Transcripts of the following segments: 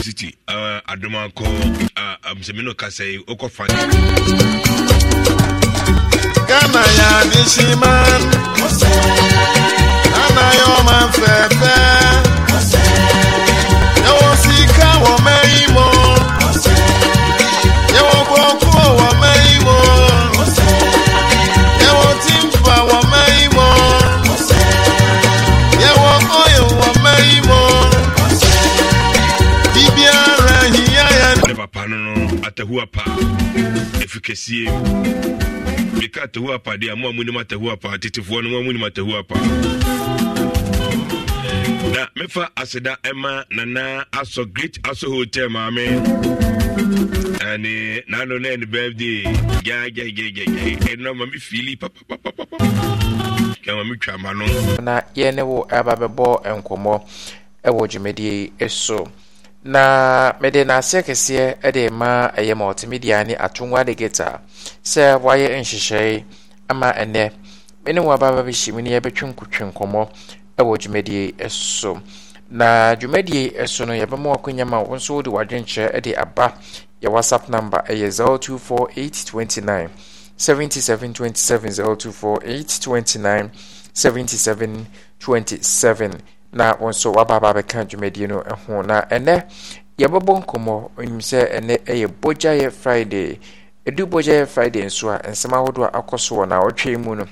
university adomako sɛmi no kasa yi wokɔ fa gama ya nisiman anayɔman fɛfɛ ɛwɔ sika wɔ mɛ atahuapa ɛfi kɛsie meka atahuapa deɛ mo a monim atahuapa tetefoɔ no mo a monim atahuapa na mefa aseda ɛma nana asɔ great asɔ hotel maame and na no na any birthday ya ya ya ya ya fili papapapapa kɛ mami twa ma no. na yɛn ne wo ɛba bɛbɔ nkɔmɔ ɛwɔ dwumadie so. na mede n'aseɛ kɛseɛ de ma ɛyɛ multimedia ne atongwa de geta sɛ wayɛ nhyehyɛe ama ɛnɛ me ne wɔababa bi hyɛ mu ne yɛbɛtwe nkɔmmɔ wɔ dwumadie so na dwumadie so no yɛbɛma wakɔnya ma wo nso wode w'adwenkyerɛ de aba yɛ whatsapp number ɛyɛ 024829 7727 024829 7727 na wọn nso wabaaba bɛka dwumadie no ho na ɛnɛ yɛbɛbɔ nkɔmmɔ nim sɛ ɛnɛ ɛyɛ bogyayɛ friday ɛdu bogyayɛ friday nso a nsɛm ahodoɔ akɔ so wɔ naawɔtwe mu no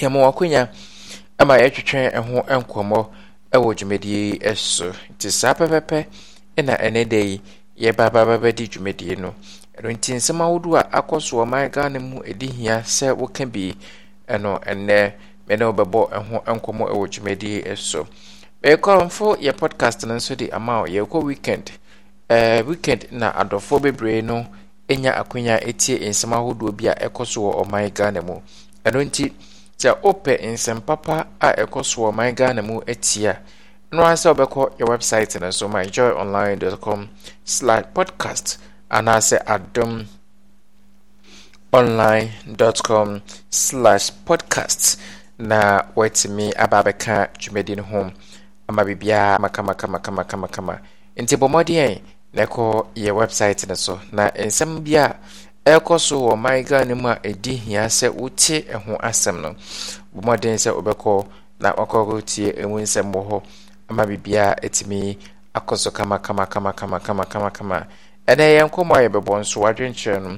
yɛma wakonya ama yɛtwetwɛn ɛho nkɔmmɔ ɛwɔ dwumadie yi so nti saa pɛpɛpɛ ɛna ɛnɛ da yi yɛbaababɛbɛdi dwumadie no ɛno nti nsɛm ahodoɔ a akɔ so wɔ man ghana mu ɛdi hia sɛ woka bi ɛno ɛnɛ mene wobɛbɔ ho nkɔmmɔ ɛwɔ dwumadie so ɛkɔrɔmfo yɛ podcast no nso de ama yɛkɔ weekend uh, weekend na adɔfoɔ bebree no ɛnya akonya ɛtie nsɛm ahodoɔ bi a ɛkɔ so wɔ ɔman ghana mu ɛno nti sɛ wopɛ nsɛm papa a ɛkɔ so wɔ ɔman ghana mu ɛtie a no ara sɛ wobɛkɔ yɛ website no so myjoyonline.com slash podcast anaasɛ adom online.com slash podcasts na watumi aba bɛka dwumadi no ho ama biribiaa makamakamakamamakama nti bɔmmɔden na ɛkɔ yɛ website no so na nsɛm bi a ɛkɔ so wɔ maiga no mu a ɛdi hia sɛ wote ho asɛm no bɔmmɔden sɛ wobɛkɔ na wakɔkɔtie ɛmu nsɛm wɔ hɔ ama biribiaa ɛtumi akɔ so kamakamakamakamakamakamakama ɛnɛ yɛn nkɔmmɔ a yɛbɛbɔ nso wadwenkyerɛ no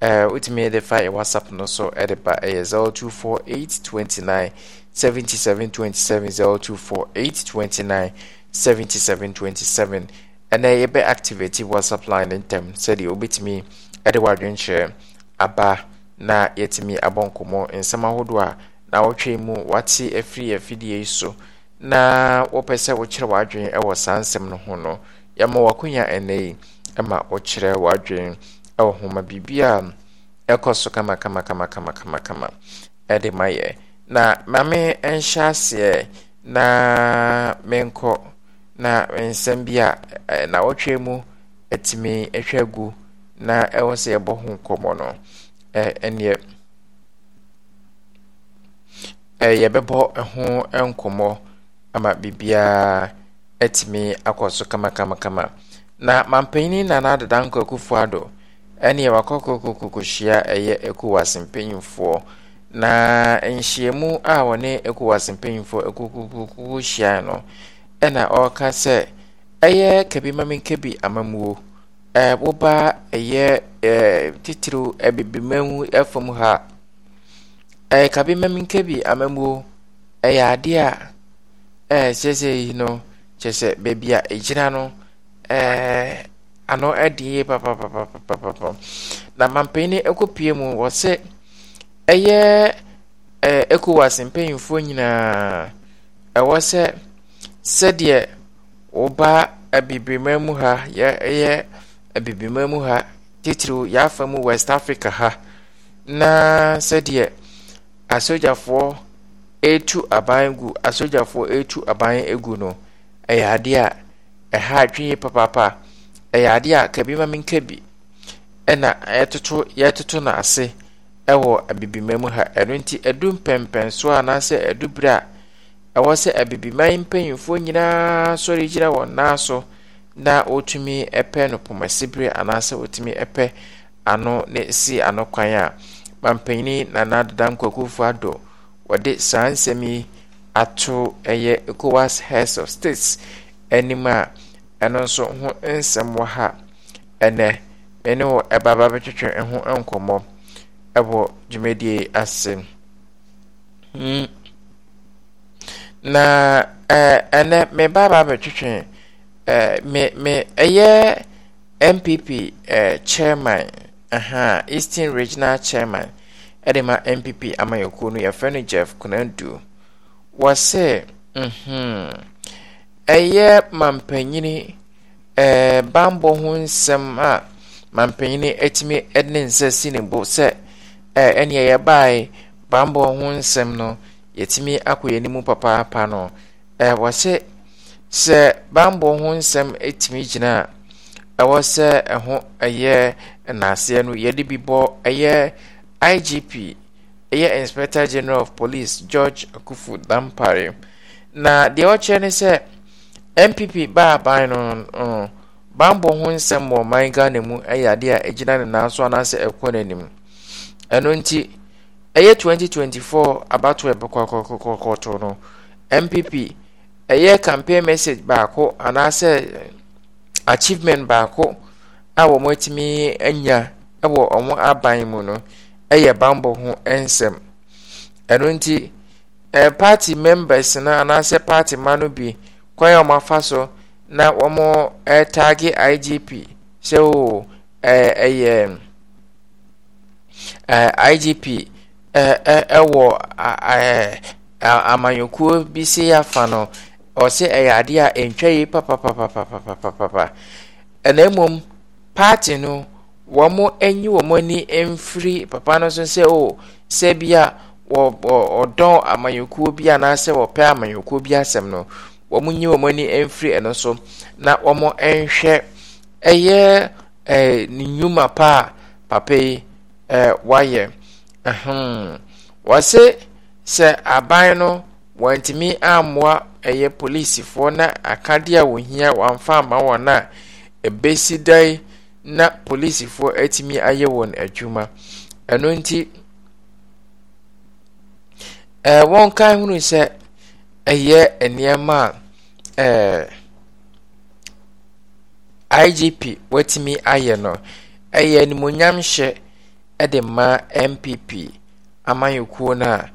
Eh, wotumi de fa yɛ whatsapp no so de eh, ba ɛyɛ 024829 7727 024829 7727 ɛnɛ yɛbɛ activate whatsapp line ntɛm sɛdeɛ wobɛtumi de wadwenkyerɛ aba na yɛtumi abɔ nkɔmmɔ nsɛm ahodoɔ a na wɔtwe mu wate afiri eh, afidie yi so na wɔpɛ sɛ wokyerɛ w'adwene wɔ saa nsɛm no ho no yɛma w'akonya ɛnɛ yi ma wokyerɛ w'adwene ɛwɔ homa biribia ɛkɔ so kamakamakamakamakama ɛde ma yɛ na maame ɛnhyɛ aseɛ na menkɔ na nsɛm bi a nawɔtwe mu atumi hwɛ gu na ɛwɔ sɛ yɛbɔ ho nkɔmmɔ no ɛneɛ yɛbɛbɔ ho nkɔmɔ ama biribiaa atumi akɔ so kamakamakama na mampanin nana adeda nkɔ akufoɔ ado ɛne wakɔkɔkɔkɔhyia ɛyɛ ECOWAS mpanyinfoɔ na nhyiamu a wɔne ECOWAS mpanyinfoɔ ɛkɔkɔkɔhyia no ɛna ɔreka sɛ ɛyɛ kabi maminka kabi amamuo ɛɛ woba ɛyɛ ɛɛ titiriw ɛbibimamu ɛfam ha ɛyɛ kabi maminka kabi amamuo ɛyɛ adeɛ a ɛɛ kyerɛ yi no kyerɛ sɛ beebi a egyina no ɛɛ. ano ɛde yie papapapapapa na mampanin ɛkɔpie mu wɔsɛ ɛyɛ ɛɛ ECOWAS mpanyinfoɔ nyinaa ɛwɔ sɛ sɛdeɛ wɔba abibirima mu ha yɛ ɛyɛ abibirima mu ha titiriw yafa mu West Africa ha na sɛdeɛ asogyafoɔ etu aban gu asogyafoɔ etu aban egu no ɛyɛ adeɛ a ɛha atwi papaapa. ɛyɛ adeɛ a kabi ma menka bi ɛna yɛtoto yɛtoto no ase ɛwɔ abibima mu ha ɛno nti ɛdu mpɛmpɛn so anaasɛ ɛdu berɛ a ɛwɔ sɛ abibiman mpanyimfoɔ nyinaa sɔre gyina wɔn nan so na wɔtumi pɛ no pɔmɛsibere anaasɛ wɔtumi pɛ ano ne si ano kwan a mampanyini nana dada nkwakufoɔ adɔ wɔde saa nsɛm yi ato ɛyɛ ecowas heads of states anim a ɛno nso ho nsɛm wɔ ha ɛnɛ me ne wo ɛbaba bɛtwetwe ho nkɔmmɔ ɛwɔ dwumadie ase hmm. na ɛnɛ me baba bɛtwetwe me me ɛyɛ npp chairman aha eastern regional chairman ɛde ma npp amayɛkuo no yɛfrɛ no jeff kunadu wɔ se mhm ɛyɛ mampanin ɛɛ bambɔ ho nsɛm a mampanin atumi ne nsa si ne bo sɛ ɛɛ ɛnea baae bambɔ ho nsɛm no yɛtumi akɔ yɛn mu papaapa no ɛɛ wɔhyɛ sɛ bambɔ ho nsɛm atumi gyina a ɛwɔ sɛ ɛho ɛyɛ nnaaseɛ no yɛde bi bɔ ɛyɛ igp ɛyɛ inspector general of police george Akufu dampare na deɛ ɔkyerɛ ne sɛ npp baa ban no no bambɔ ho nsɛm wɔ ɔman ghana mu yɛ adeɛ a ɛgyina ne nan so anaasɛ ɛkɔ n'anim ɛno nti ɛyɛ 2024 abato ɛbɛkɔkɔkɔkɔto no npp ɛyɛ campaign message baako anaasɛ achievement baako a wɔn atumi anya wɔ wɔn aban mu no yɛ bambɔ ho nsɛm ɛno nti ɛɛ party members no anaasɛ party ma no bi kwan eh, eh, eh, a wɔn oh, so na wɔn ɛɛtaage igp sɛ o ɛɛ ɛyɛ ɛɛ igp ɛɛ ɛwɔ ɛɛ amanyɔkuo bi si afa no ɔsɛ ɛyɛ adeɛ a ntwa yi papapapapapapapa ɛna mmom paati no wɔn anyi wɔn ani mfiri papa no so sɛ o sɛ bi a wɔ ɔdɔn amanyɔkuo bi anaasɛ wɔpɛ amanyɔkuo bi asɛm no. wɔn nyi wɔn ani mfiri ɛno so na wɔn nhwɛ ɛyɛ ɛɛ ne nnwuma pa a papa yi eh, ɛɛ wayɛ ɛhɛn wɔse sɛ aban no wɔntumi ammoa ɛyɛ polisifoɔ na akadeɛ a wɔhia wɔamfa ama wɔn a ɛbɛsi dan na polisifoɔ atumi ayɛ wɔn adwuma ɛno nti ɛɛ eh, wɔn kan hunu sɛ. ɛyɛ nneɛma a ɛɛ igp watumi ayɛ no ɛyɛ animonyam ɛde ma npp amanyɔkuo no a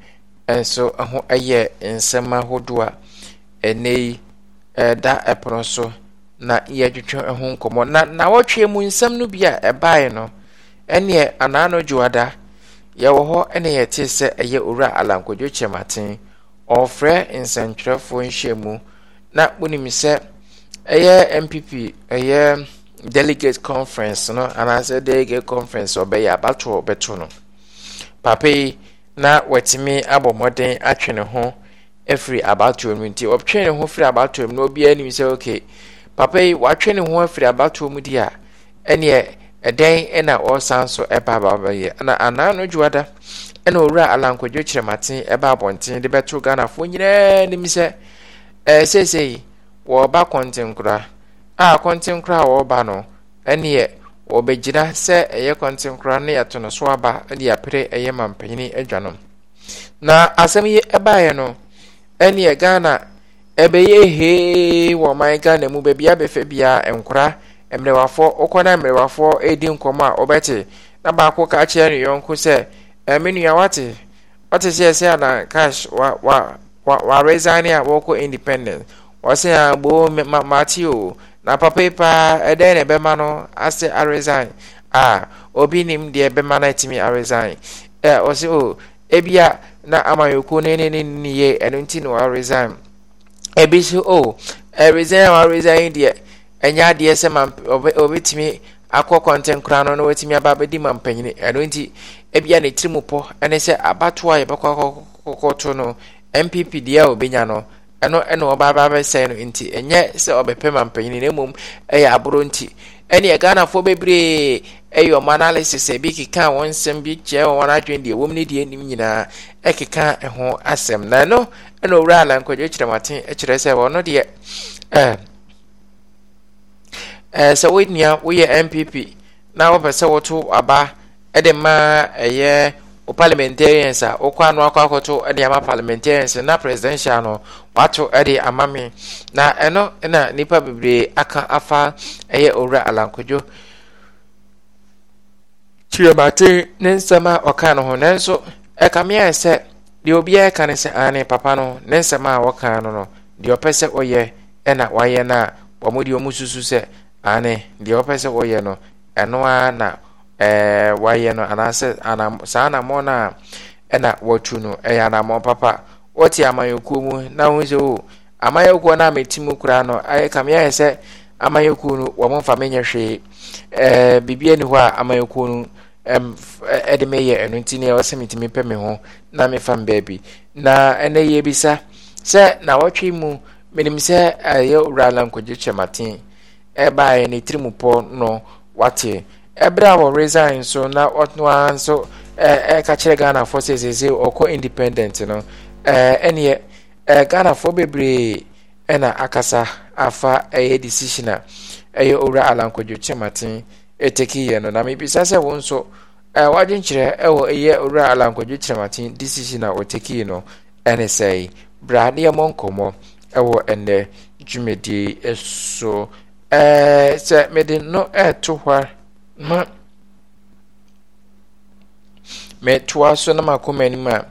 ɛnso ɛho ɛyɛ nsɛm ahodoɔ a ɛnɛ yi ɛda ɛpono so na yɛatwitwe ɛho nkɔmɔ. na nawɔtwe mu nsɛm no bi a ɛbae no ɛneɛ anaano dwoada yɛwɔ hɔ ɛne yɛtee sɛ ɛyɛ owura alankɔdwo kyɛmaten ɔrefrɛ nsɛntwerɛfoɔ nhyiamu na wonim sɛ ɛyɛ npp ɛyɛ delegate conference no anaasɛ delegate conference ɔbɛyɛ abatoɔ bɛto no papa yi na watumi abɔ mmɔden atwe ne ho afiri abatoɔ mu nti ɔtwe ne ho firi abatoɔ mu na obiara nim sɛ okay papa yi watwe ne ho afiri abatoɔ mu di a ɛneɛ ɛdɛn na ɔresan so ɛba ababɛyɛ na anaa no dwoada ɛna owura alankwadwo kyerɛmaten ɛba abɔnten de bɛto ghanafoɔ nyinaa nim sɛ eh, ɛɛ seesei wɔreba kɔntenkora a kɔntenkora a wɔreba no ɛneɛ wɔbɛgyina sɛ ɛyɛ kɔntenkora ne yɛto no so aba de apere ɛyɛ mampanyini adwa no na asɛm yi ɛbaeɛ no ɛneɛ ghana ɛbɛyɛ hee wɔ ɔman ghana mu baabi abɛfɛ bia nkora mmerɛwafoɔ wokɔ na mmerɛwafoɔ ɛredi nkɔmmɔ a wɔbɛte na baako ka kyerɛ ne yɔnko sɛ ɛmi nua wate wate sɛ ɛsɛ ana cash wa wa wa wa resign a wɔkɔ independent wɔsɛ a gboo ma mate o na papa yi paa ɛdɛn na ɛbɛma no asɛ aresign a obi nim deɛ ɛbɛma no a aresign ɛ wɔsɛ o ebia na amanyɔkuo ne ne ne ne yie ɛno nti na waresign ebi so o ɛresign a waresign deɛ ɛnyɛ adeɛ sɛ ma obi obetumi akɔ kɔntɛn koraa no na watumi aba abɛdi ma mpanyin ɛno nti. ebia ne tirim pɔ ɛne sɛ abatoɔ a yɛbɛkɔ akɔkɔto no npp deɛ a obenya no ɛno ɛna ɔba aba abɛsɛn no nti ɛnyɛ sɛ ɔbɛpɛ ma mpanyin na mmom ɛyɛ aboro nti ɛne ghanafoɔ bebree ɛyɛ ɔmo analysis ebi keka wɔn nsɛm bi kyerɛ wɔn adwene deɛ wɔm ne deɛ nim nyinaa ɛkeka ɛho asɛm na ɛno ɛna owura alankɔdwe kyerɛmaten ɛkyerɛ sɛ wɔn deɛ ɛɛ ɛɛ sɛ wɔn nua wɔyɛ npp na wɔpɛ sɛ wɔto aba. ɛde maa ɛyɛ o parliamentarians a wokɔ ano akɔ akɔto de ama parliamentarians na presidential no wato de ama me na ɛno na nnipa bebree aka afa ɛyɛ owura alankodwo kyerɛmate ne nsɛm a ɔka no ho nanso ɛka meɛ sɛ deɛ obiara ka ne sɛ ane papa no ne nsɛm a wɔka no no deɛ ɔpɛ sɛ ɔyɛ ɛna wayɛ no a wɔn deɛ wɔn susu sɛ ane deɛ ɔpɛ sɛ ɔyɛ no ɛno ara na ɛɛ eh, wayɛ no anaasɛ saa anammɔ no a ɛna wɔtu no ɛyɛ anammɔ papa wɔte amanyɔkuo mu na ho sɛ o amanyɔkuo no a meti koraa no ayɛ kameɛ sɛ amanyɔkuo no wɔn mfa menyɛ hwee ɛɛ biribi hɔ a amanyɔkuo no ɛm ɛde meyɛ ɛno nti ne ɛwɔ sɛ metumi pɛ me ho na mefa me baabi na ɛnɛ yɛ bisa sɛ na wɔtwe mu menim sɛ ɛyɛ owura lankɔgye kyɛmaten eh? ɛbaeɛ ne tirim pɔ no wate ɛberɛ a wɔ resign so na ɔno ara nso ɛka e, e, kyerɛ ghanafoɔ sɛ sese ɔkɔ independent no ɛneɛ e, ghanafoɔ bebree ɛna akasa afa ɛyɛ decision a ɛyɛ owura alankwadwo kyɛmaten ɛtɛkiyɛ no na mebisa sɛ wo nso w'adwenkyerɛ ɛwɔ ɛyɛ owura alankwadwo kyɛmaten decision a ɔtɛkii no ɛne sɛe bra ne yɛmmɔ nkɔmmɔ ɛwɔ ɛnnɛ dwumadie so sɛ mede no ɛɛto hɔ a ma metoa so na makɔ m'anim a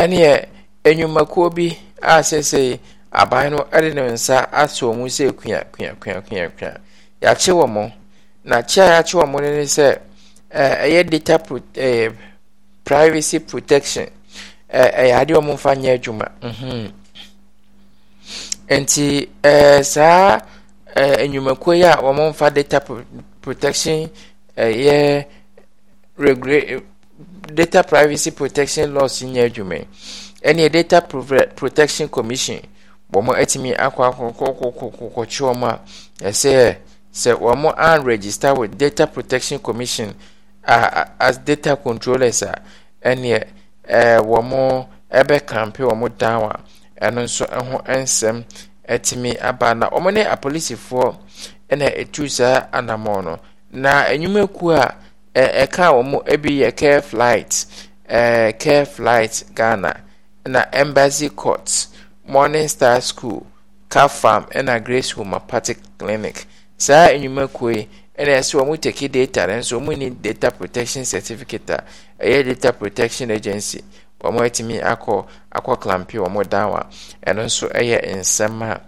ɛneɛ enwumakuo bi a seesei aban no de ne nsa asɔ mu sɛ kua kua kua kua kua yɛakye wɔ mo na kye a yɛakye wɔ mo no ne sɛ ɛyɛ data pro ɛɛ privacy protection ɛɛ ɛyɛ adeɛ wɔn mfa nyɛ adwuma mhm nti ɛɛ saa ɛɛ enwumakuo yi a wɔn mfa data protection. ɛyɛ regulate data privacy protection laws nyɛ adwuma ɛne data protection commission wɔn atumi akɔ akɔkɔkɔkɔkɔkye wɔn a ɛsɛ sɛ wɔn an register with data protection commission as data controllers a e ɛɛ wɔn ɛbɛ kampe wɔn down a ɛno nso ɛho nsɛm ɛtumi aba na wɔn ne apolisifoɔ etu saa anamɔ na enyumeku a ɛka e, e wɔn ebi yɛ care flight ɛɛ e, care flight ghana na embassy court morning star school car farm ɛna grace homeopathic clinic saa enyumeku yi ɛna ɛsɛ wɔn teki data no nso wɔn ni data protection certificate a ɛyɛ data protection agency wɔn atumi akɔ akɔ klampi wɔn dan wa ɛno nso ɛyɛ nsɛm a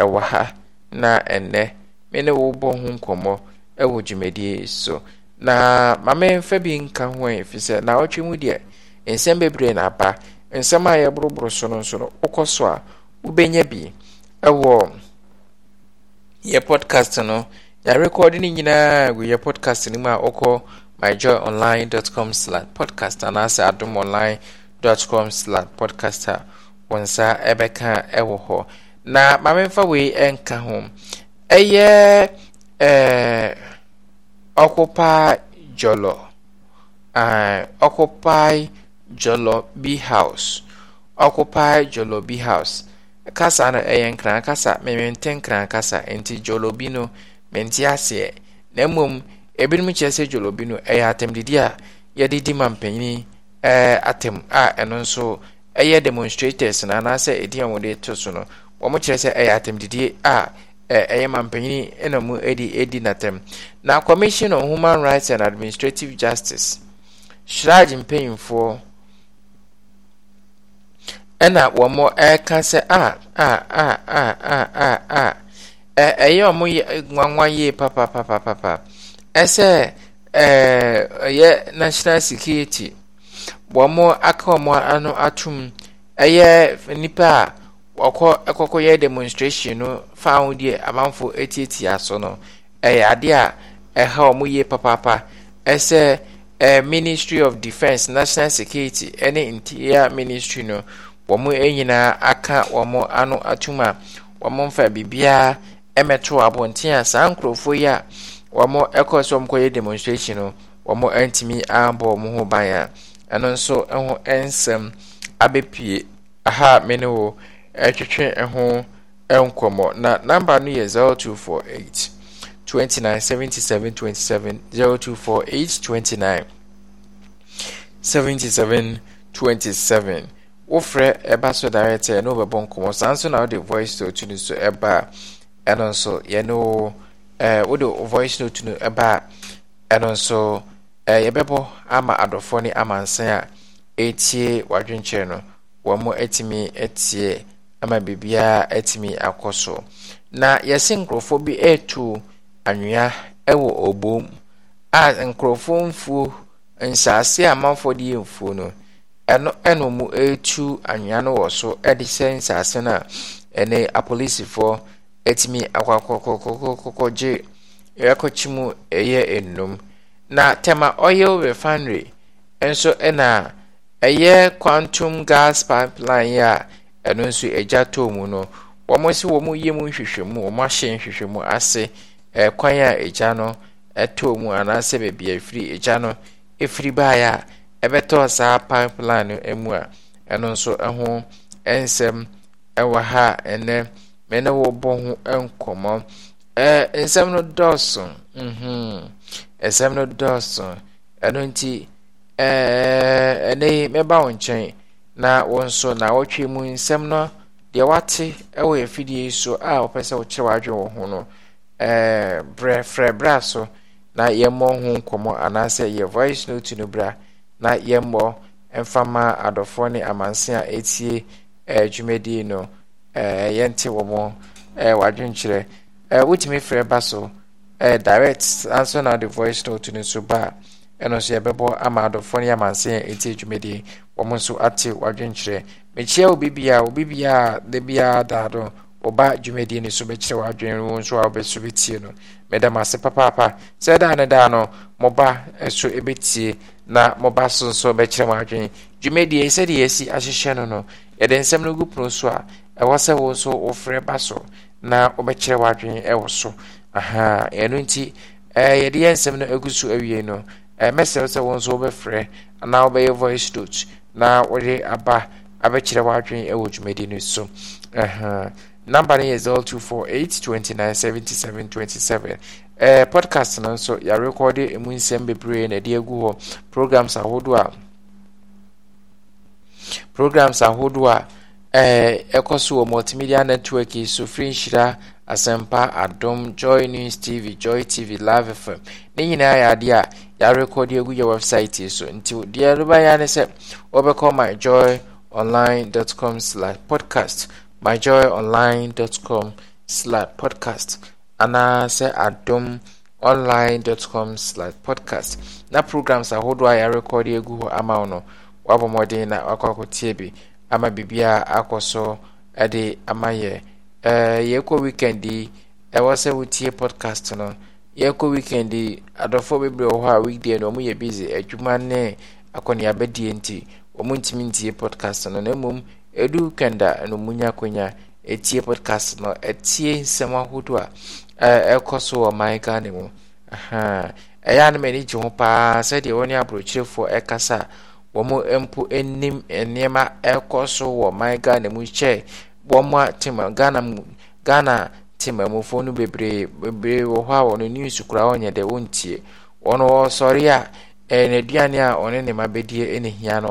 ɛwɔ ha na ɛnɛ mene wo bɔ ho nkɔmɔ. wɔ dwumadie so na maame mfa bi nka ho ɛ fi sɛ na ɔtwe mu deɛ nsɛm bebree na aba nsɛm a yɛboroboro so no nso no wokɔ so a wobɛnya bi ɛwɔ yɛ podcast no yɛarekɔɔde no nyinaa gu yɛ podcast no mu a wokɔ myjoyonline.com podcast anaasɛ adom online com podcast a wɔ nsa ɛbɛka ɛwɔ hɔ na maame mfa wei ɛnka ho ɛyɛ ɛɛ. Occupy Jolo uh, eh, Occupy Jolo B House Occupy Jolo B House kasa na ɛyɛ nkran kasa mmente nkran kasa nti Jolo bi no mente aseɛ na mmom ebinom kyerɛ sɛ Jolo B no ɛyɛ didi a yɛde di ma mpanyin ɛɛ eh, atɛm a ɛno nso ɛyɛ demonstrators na anaasɛ edi a wɔde to so no wɔn kyerɛ sɛ ɛyɛ didi a ɛyɛ mampanin na mu di di natam na commission on human rights and administrative justice shraj mpanyinfoɔ ɛna wɔn ɛka sɛ a a a a a a a ɛyɛ wɔn nwanwa yie papa papa papa ɛsɛ ɛɛ ɛyɛ national security wɔn aka wɔn ano atum ɛyɛ nipa a. ɔkɔ ɛkɔkɔ yɛ demonstration no fa ahodeɛ amanfo etiatia aso no ɛyɛ adeɛ a ɛha wɔn yie papaapa ɛsɛ ɛɛ ministry of defence national security ɛne interior ministry no wɔn nyinaa aka wɔn ano atum a wɔn mfa biribiara ɛmɛto abɔnten a saa nkurɔfoɔ yi a wɔn ɛkɔ so wɔn kɔyɛ demonstration no wɔn ntumi abɔ wɔn ho ban a ɛno nso ɛho nsɛm abɛpie aha mene wo. ɛtwetwe ho nkɔmmɔ na namba no yɛ 0248 29 77 27 0248 29 77 27 wofrɛ ɛba so direct ɛne wobɛbɔ nkɔmmɔ saa nso na wode voice note no so ɛba a ɛno nso yɛne wo wode voice note no ɛba a ɛno nso yɛbɛbɔ ama adɔfoɔ ne amansan a ɛtie wadwenkyerɛ no wɔn mo atumi atie ama biribiara atumi akɔ so na yɛse nkurɔfoɔ bi ɛretu anwea wɔ ɔbom a nkurɔfoɔ mfuo nsaase a amanfoɔ de yɛ mfuo no ɛno ɛna mu ɛretu anwea no wɔ so de sɛ nsase no a ɛne apolisifoɔ atumi akɔkɔkɔkɔkɔgye ɛkɔkye mu ɛyɛ nnum na tema oil refinery nso ɛna ɛyɛ quantum gas pipeline a ɛno nso agya tɔɔ mu no wɔn si wɔn yie mu nhwehwɛmu wɔn ahyɛ nhwehwɛmu ase ɛkwan a agya no ɛtɔɔ mu anaasɛ baabi a ɛfiri agya no ɛfiri baeɛ a ɛbɛtɔɔ saa pipeline no mu a ɛno nso ɛho nsɛm ɛwɔ ha ɛnɛ mɛ ne wɔbɔ ho nkɔmmɔ ɛɛ nsɛm no dɔɔso mhm nsɛm no dɔɔso ɛno nti ɛɛɛ ɛnɛ yi mɛba wo nkyɛn. na wọn nso na wɔtwe mu nsɛm no deɛ wate wɔ afidie yi so a wɔpɛ sɛ wɔkyerɛ w'adwe wɔ ho no ɛɛ brɛ frɛ bra so na yɛmmɔ ho nkɔmmɔ anaasɛ yɛ voice note no bra na yɛmmɔ mfama adɔfoɔ ne amanse a etie ɛɛ dwumadie no ɛɛ yɛnte wɔn ɛɛ w'adwenkyerɛ ɛɛ wotumi frɛ ba so ɛɛ direct na de voice note no ba a. ɛno nso yɛbɛbɔ ama adɔfoɔ no yɛ amanse a ɛti adwumadie wɔn nso ate wadwenkyerɛ mekyia obibiaa obibiaa da biaa daa do ɔba dwumadie no so bɛkyerɛ wadwen wo nso a wobɛso bɛtie no meda m ase papaapa sɛ daa ne daa no mɔba so bɛtie na mɔba so nso bɛkyerɛ m adwene dwumadie sɛdeɛ yɛasi ahyehyɛ no no yɛde nsɛm no gu pono so a ɛwɔ sɛ wo nso wofrɛ ba so na wobɛkyerɛ wadwen wɔ so aha ɛno nti yɛde yɛ nsɛm no agu so awie no ɛmɛsɛw sɛ nso wɔbɛfrɛ anaa wɔbɛyɛ voice note na wɔde aba abɛkyerɛ wɔadwene ɛwɔ dwumadi no so number no yɛ 29 77 27 eh, podcast no nso yɛarekɔde ɛmu nsɛm bebree na ɛde agu hɔ programs ahodoɔ a programs ahodoɔ a ɛkɔ eh, so wɔ multimedia network yi so firi nhyira asɛmpa adom joy news tv joy tv live fm ne nyinaa yɛ adeɛ a yɛarekɔde agu yɛ website yi so nti deɛ ɛrebɛyɛ ne sɛ wɔbɛkɔ com slash podcast com slash podcast anaa sɛ adom com slash podcast na programs ahodoɔ a yɛarekɔde agu hɔ ama wo no wabɔ mmɔden na wakɔ akɔtie bi ama biribiaa akɔ so de ama yɛ yɛkɔ weekend yi ɛwɔ sɛ wotie podcast no yɛkɔ weekend adɔfoɔ bebree wɔ hɔ a weekday no ɔmo yɛ busy adwuma ne akɔneabadie nti ɔmo ntumi ntie podcast no na mmom edu weekend na no mu nya akonnwa etie podcast no etie nsɛm ahodoɔ a ɛkɔ so wɔ man ghana mu ɛyɛ anam ani gye ho paa sɛdeɛ wɔne aburokyerefoɔ ɛkasa wɔn mpo anim nneɛma ɛkɔ so wɔ man ghana mu kyɛ wɔn a tem ghana mu ghana. te maamufoɔ no bebree bebree wɔ hɔ a wɔn news kura wɔnyɛ dɛ wɔntie wɔn wɔsɔre a ɛɛ eh, n'aduane a ɔne ne ma bɛdie ɛna hia no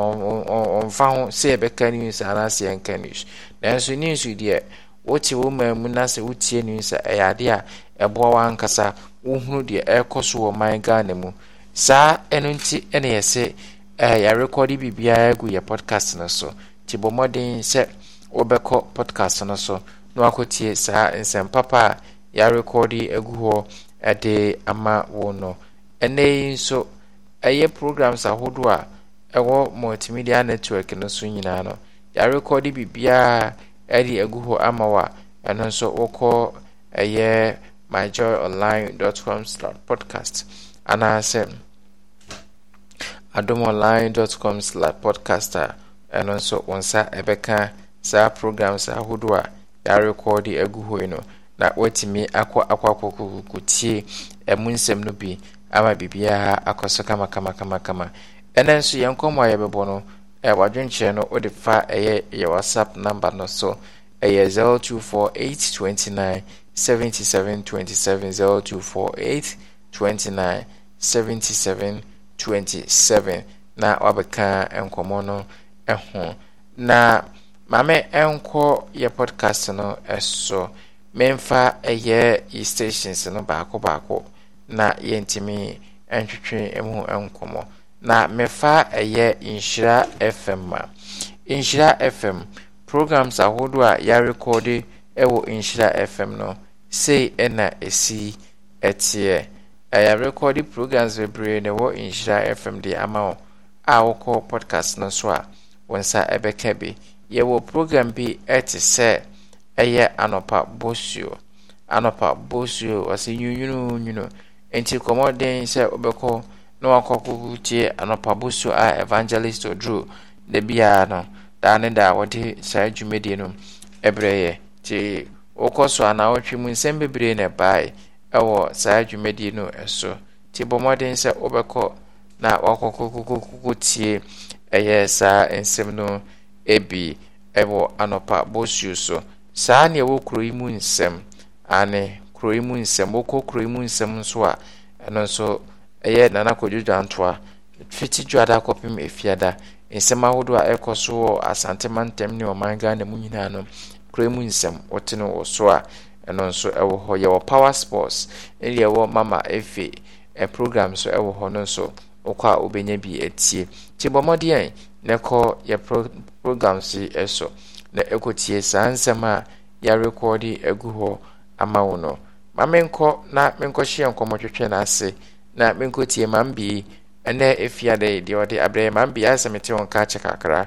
ɔmfa ho sɛ ɛbɛka news anaasɛ ɛnka news nanso news deɛ wote wo maamu na sɛ wotie news a ɛyɛ adeɛ a ɛboa wankasa wohunu deɛ ɛrekɔ so wɔ man ghana mu saa ɛno nti ɛna yɛ sɛ ɛɛ eh, yɛrekɔde biribiara agu yɛ podcast no so te bɔ mmɔden sɛ wɔbɛkɔ podcast no so na wakɔtie saa nsɛm papa a yɛarekɔde agu hɔ ɛde ama wo no ɛnɛ yi nso ɛyɛ programs ahodoɔ a ɛwɔ multimedia network no so nyinaa no yɛarekɔde biribiaa ɛde agu hɔ ama wo a ɛno nso wokɔ ɛyɛ myjoyonline.com podcast anaasɛ adomonline.com podcast a ɛno nso wo nsa ɛbɛka saa programs ahodoɔ a yɛarekɔɔ de agu hoi no na woatumi akɔ akɔakɔkɔkɔtie ɛmu eh, nsɛm no bi ama biribiaa akɔ so kamakamakamakama ɛnɛ nso yɛn nkɔmmɔ a yɛbɛbɔ no wadwenkyerɛ no wode fa ɛyɛ eh, yɛ whatsapp number no so eh, na wabɛka nkɔmmɔ no ho na maame ɛnkɔ yɛ podcast no ɛso memfa ɛyɛ yi stations no baako baako na yɛntumi ntwitwe mu nkɔmmɔ na mefa ɛyɛ nhyira fm a nhyira fm programs ahodoɔ a yɛarekɔde ɛwɔ nhyira fm no sei ɛna ɛsi ɛteɛ yɛarekɔde programs bebree na ɛwɔ nhyira fm de ama wo a wokɔ podcast no so a wo nsa ɛbɛka bi yɛwɔ program bi te sɛ ɛyɛ anɔpa bosuo anɔpa bosuo ɔsɛ nwunwununwunu nti kɔmmɔden sɛ wobɛkɔ na wakɔkɔkɔ tie anɔpa bosuo a evangelist oduro da biara no daa ne daa wɔde saa dwumadie no ɛberɛ yɛ nti wokɔ so anaawɔtwe mu nsɛm bebree na bae ɛwɔ saa dwumadie no ɛso nti bɔ mmɔden sɛ wobɛkɔ na wakɔkɔkɔkɔkɔ tie ɛyɛ saa nsɛm no ebi ɛwɔ anɔpa bosuo so saa nea ɛwɔ kuro yi mu nsɛm ane kuro yi mu nsɛm wɔkɔ kuro yi mu nsɛm nso a ɛno nso ɛyɛ nana kɔdwo dwantoa fiti dwada kɔpem efiada nsɛm ahodoɔ a ɛkɔ so wɔ asante mantam ne ɔman ghana mu nyinaa no kuro yi mu nsɛm wɔte no wɔ so a ɛno nso ɛwɔ hɔ yɛwɔ power sports ɛne yɛwɔ mama efe program so ɛwɔ hɔ no nso wokɔ a wobɛnya bi atie nti bɔ mmɔdeɛn yɛ programs yi so na ekotie saa nsɛm a yɛarekɔɔde agu hɔ ama wo no ma menkɔ na menkɔhyeɛ nkɔmmɔtwetwe no ase na menkɔtie ma mbii ɛnɛ ɛfia dɛ deɛ ɔde abrɛ yɛ ma mbii asɛ mete wo nka kyɛ kakra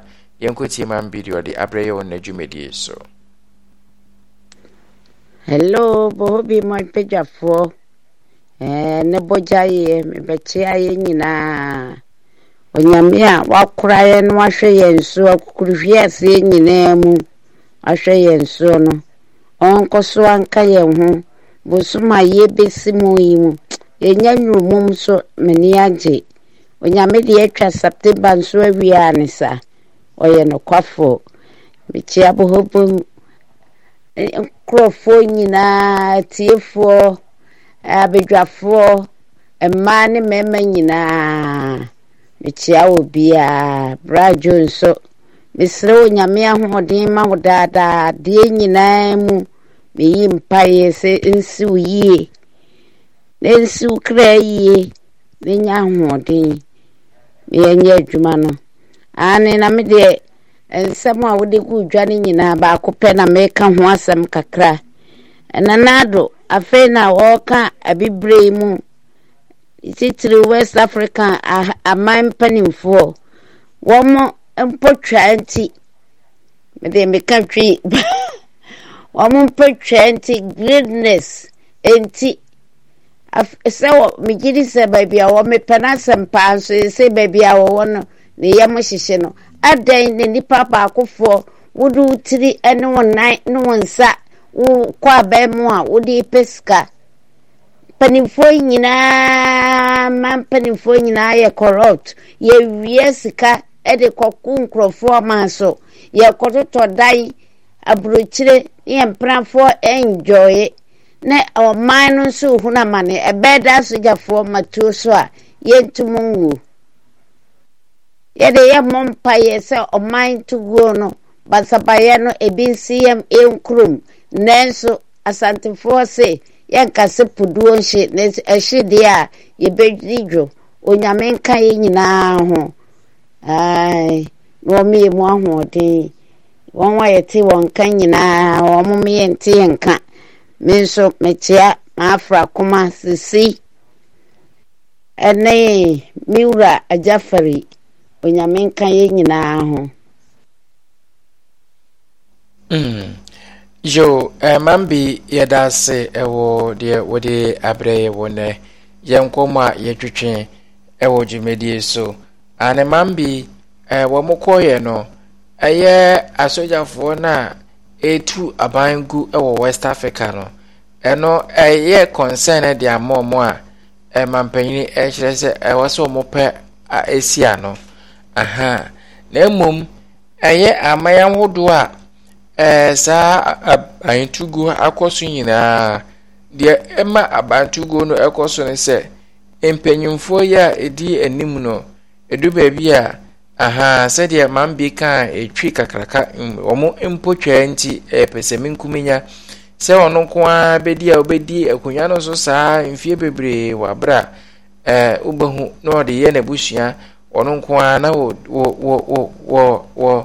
yɛnkɔtie ma mbii deɛ ɔde abrɛ yɛ wɔ n'adwumadie so hello bohobi mapagyafoɔ ne bɔgyaeɛ mebɛkye ayɛ nyinaa onyame a wakora yɛ no wahwɛ yɛn so akukuruhwie afie nyinaa mu ahwɛ yɛn so no ɔnkɔ so anka yɛn ho bosom a yɛbɛsi mu yi mu yɛnya nnurumum so m'ani agye onyame deɛ atwa september nso awie a ne sa ɔyɛ nokwafoɔ mekyia bohobom e, nkurɔfoɔ nyinaa tiefoɔ abadwafoɔ mmaa ne mmarima nyinaa mekyia wɔ biaa bra dwo nso mesrɛ wo nyame ahoɔden ma wo daadaa deɛ nyinaa mu meyi mpaeɛ sɛ nsi wo yie na nsi wo kra yie na nya ahoɔden meyɛnyɛ adwuma no ane na me deɛ nsɛm a wode gu dwa no nyinaa baako pɛ na meka ho asɛm kakra ɛnanaado afei na wɔreka abibire mu titiri west africa aman mpanimfoɔ wɔn mpɔtwa nti mede meka twi wɔn mpɔtwa nti greatness nti sɛ wɔ megye di sɛ baabi a wɔmepɛ no asɛmpaa nso sɛ baabi a wɔwɔ no ne yam hyehyɛ no adan na nipa baakofoɔ wode wo tiri ne wo nan ne wo nsa wokɔ abɛn mu a wode pɛ sika mpanimfoɔ nyinaa ma mpanimfoɔ nyinaa yɛ corrupt yɛwie sika de kɔko nkurɔfoɔ ma so yɛkɔtotɔ dan aburokyire yɛ mpenafoɔ ɛngyɔɔye na ɔman no nso hunu amane ɛbɛɛ da sogyafoɔ matuo so a yɛntum nwuo yɛde yɛ mmɔ mpaeɛ sɛ ɔman toguo no basabayɛ no ebi nsi yɛm yɛnkurom nanso asantefoɔ se yɛnkase poduo ɛhyedeɛ eh, a yɛbɛdi dwo onyame nka yɛ nyinaa ho na ɔmeyɛ mu ahoɔden wɔn a yɛte wɔn nka nyinaa wɔn yɛ nte yɛ nka me nso mekyea maafra koma sisi ɛne me wura agyafari onyame nka yɛ nyinaa ho hmm. yo eh, mambi yɛda ase eh, ɛwɔ deɛ wode abrɛ yɛ wɔ nɛ yɛ nkɔm a yɛtwitwe ɛwɔ eh, dwumadie so ane mambi wɔ mo kɔɔyɛ no ɛyɛ asogyafoɔ no a ɛtu aban gu ɛwɔ west africa no ɛno ɛyɛ concern de ama mo a ɛmampanyini ɛkyerɛ sɛ ɛwɔ sɛ ɔmo pɛ a ɛsi ano aha na mmom ɛyɛ aman ahodoɔ a ee saa abantuguo akɔ so nyinaa deɛ ɛma abantuguo no ɛkɔ so no sɛ mpanyinfoɔ yi a ɛdi anim no ɛdu baabi a ahaa sɛdeɛ maame bi kaa ɛtwi kakraka wɔn mpo nti ɛpɛ sɛ menkuminya sɛ ɔno nko ara bɛdi a ɔbɛdi akonnwa no so saa mfie bebree wɔ abere a ɛɛ wobɛhu na ɔde yɛ n'abusua ɔno nko ara na wɔ wɔ wɔ wɔ wɔ.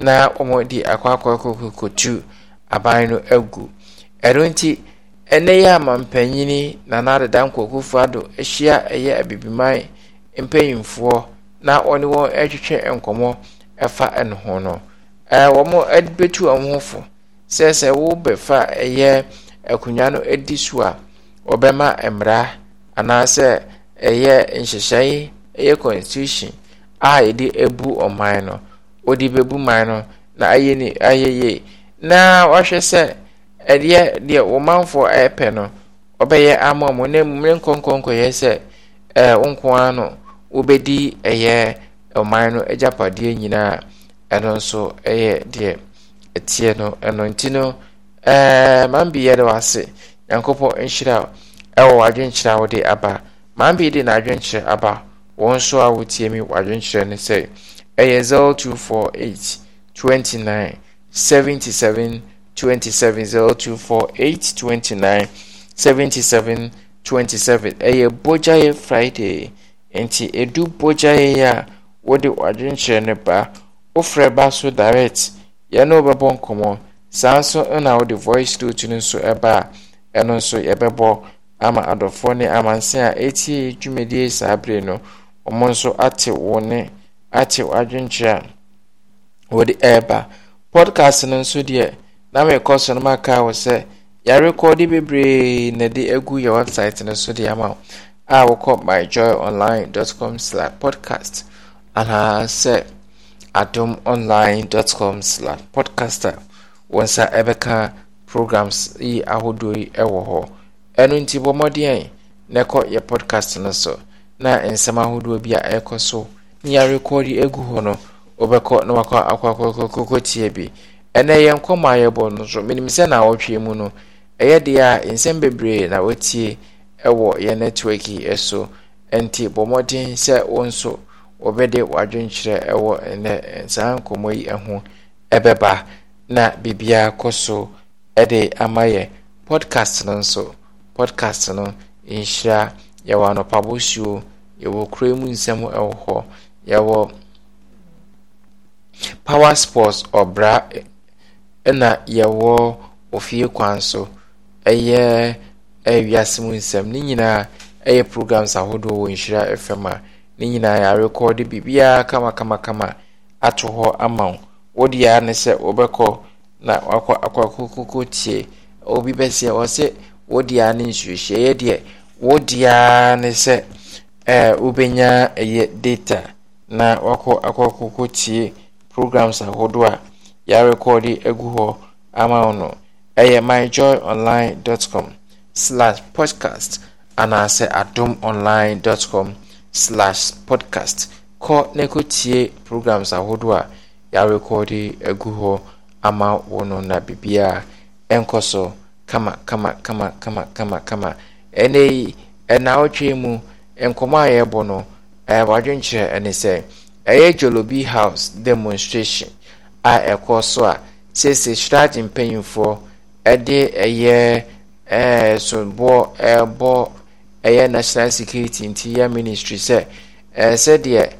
na wɔde akɔakɔkɔkɔtu aban no agu ɛno nti ɛnɛ yɛ amampanyini nana deda nkɔkufoɔ ado ahyia ɛyɛ abibiman mpanyimfoɔ na wɔne wɔn ɛtwetwe nkɔmmɔ ɛfa ɛno ho no ɛɛ wɔn ɛbɛtu wɔn ho fo sɛ wɔbɛfa ɛyɛ akonnwa no ɛdi so a wɔbɛma mmara anaasɛ ɛyɛ nhyehyɛe ɛyɛ constitution a yɛde ebu ɔman no. ɔde bɛbu man no na ayɛ ni ayɛ yie na wahwɛ sɛ ɛdeɛ deɛ manfoɔ ɛɛpɛ no ɔbɛyɛ ama mu na mu nkɔnkɔnkɔyɛ sɛ ɛɛ nko ara no wɔbɛdi ɛyɛ ɔman no agyapadeɛ nyinaa ɛno nso ɛyɛ deɛ ɛteɛ no ɛno nti no ɛɛ man bi yɛ de wase nyankopɔn nhyira ɛwɔ wadwenkyerɛ a wɔde aba man bi de n'adwenkyerɛ aba wɔn nso a wɔtie mi wadwenkyerɛ no sɛ. ɛyɛ zero two four eight twenty nine seventy seven twenty seven zero two four eight twenty nine seventy seven twenty seven ɛyɛ bogyaeɛ friday nti edu bogyaeɛ a wɔde ɔdwenkyerɛ ne ba wofrɛ ba so direct yɛn no bɛbɔ nkɔmɔ saa nso na wɔde voice note no nso ɛba a ɛno nso yɛbɛbɔ ama adɔfoɔ ne amansan a etie dwumadie saa bere no wɔn nso ate wɔn ne ate w'adwenkyerɛ a wɔde ɛreba podcast no nso deɛ na merekɔ so no maka wo sɛ yɛrekɔde bebree na de agu yɛ website no so deɛ ama wo a wokɔ myjoyonline.com slash podcast anaa sɛ adom online.com slash podcast a wɔn nsa ɛbɛka programs yi ahodoɔ yi ɛwɔ hɔ ɛno nti bɔ mmɔden na ɛkɔ yɛ podcast no so na nsɛm ahodoɔ bi a ɛrekɔ so yarekɔɔdi egu hɔ no wɔbɛkɔ na wakɔ akɔkɔkɔkɔ tie bi ɛnɛ yɛn nkɔmɔ a yɛbɔ no nso sɛ na wɔtwe mu no ɛyɛ deɛ a nsɛm bebree na wɔtie ɛwɔ yɛn network yi so nti bɔ nsọ sɛ wɔn nso wɔbɛde ɛwɔ ɛnɛ nkɔmɔ yi ɛbɛba na kɔ so ɛde ama yɛ podcast no nso podcast no nhyira yɛwɔ anɔpa bosuo yɛwɔ mu nsɛm ɛwɔ hɔ. yɛwɔ power sports ɔbra ɛna yɛwɔ ofie kwan so ɛyɛ ɛyɛ wiase mu nsɛm ne nyinaa ɛyɛ programs ahodoɔ wɔ nhyira fm a ne nyinaa yɛarekɔɔde biribiara kamakamakama ato hɔ ama wo wode aa ne sɛ wobɛkɔ na wakɔ akɔkokoko tie obi bɛsɛ wɔ sɛ wode aa ne nsuohyiaeɛ deɛ wode aa ne sɛ wobɛnya ɛyɛ data na wakɔ akɔkɔkɔ tie programs ahodoɔ a yɛarekɔɔde agu hɔ ama wo no ɛyɛ myjoyonline.com slash podcast anaasɛ adom online com slash podcast kɔ na kɔtie programs ahodoɔ a yɛarekɔɔde agu hɔ ama wo no na biribiaa ɛnkɔ so kama kama kama kama kama kama ɛnɛ yi ɛnaawɔtwe mu nkɔmmɔ a yɛrebɔ no ɛyɛ eh, wadwenkyerɛ ɛne sɛ ɛyɛ jolobi house demonstration a ɛkɔ so a sese shrad mpanyinfoɔ ɛde ɛyɛ ɛɛ eh, soboɔ ɛbɔ ɛyɛ national security nti yɛ ministry sɛ ɛsɛ sɛdeɛ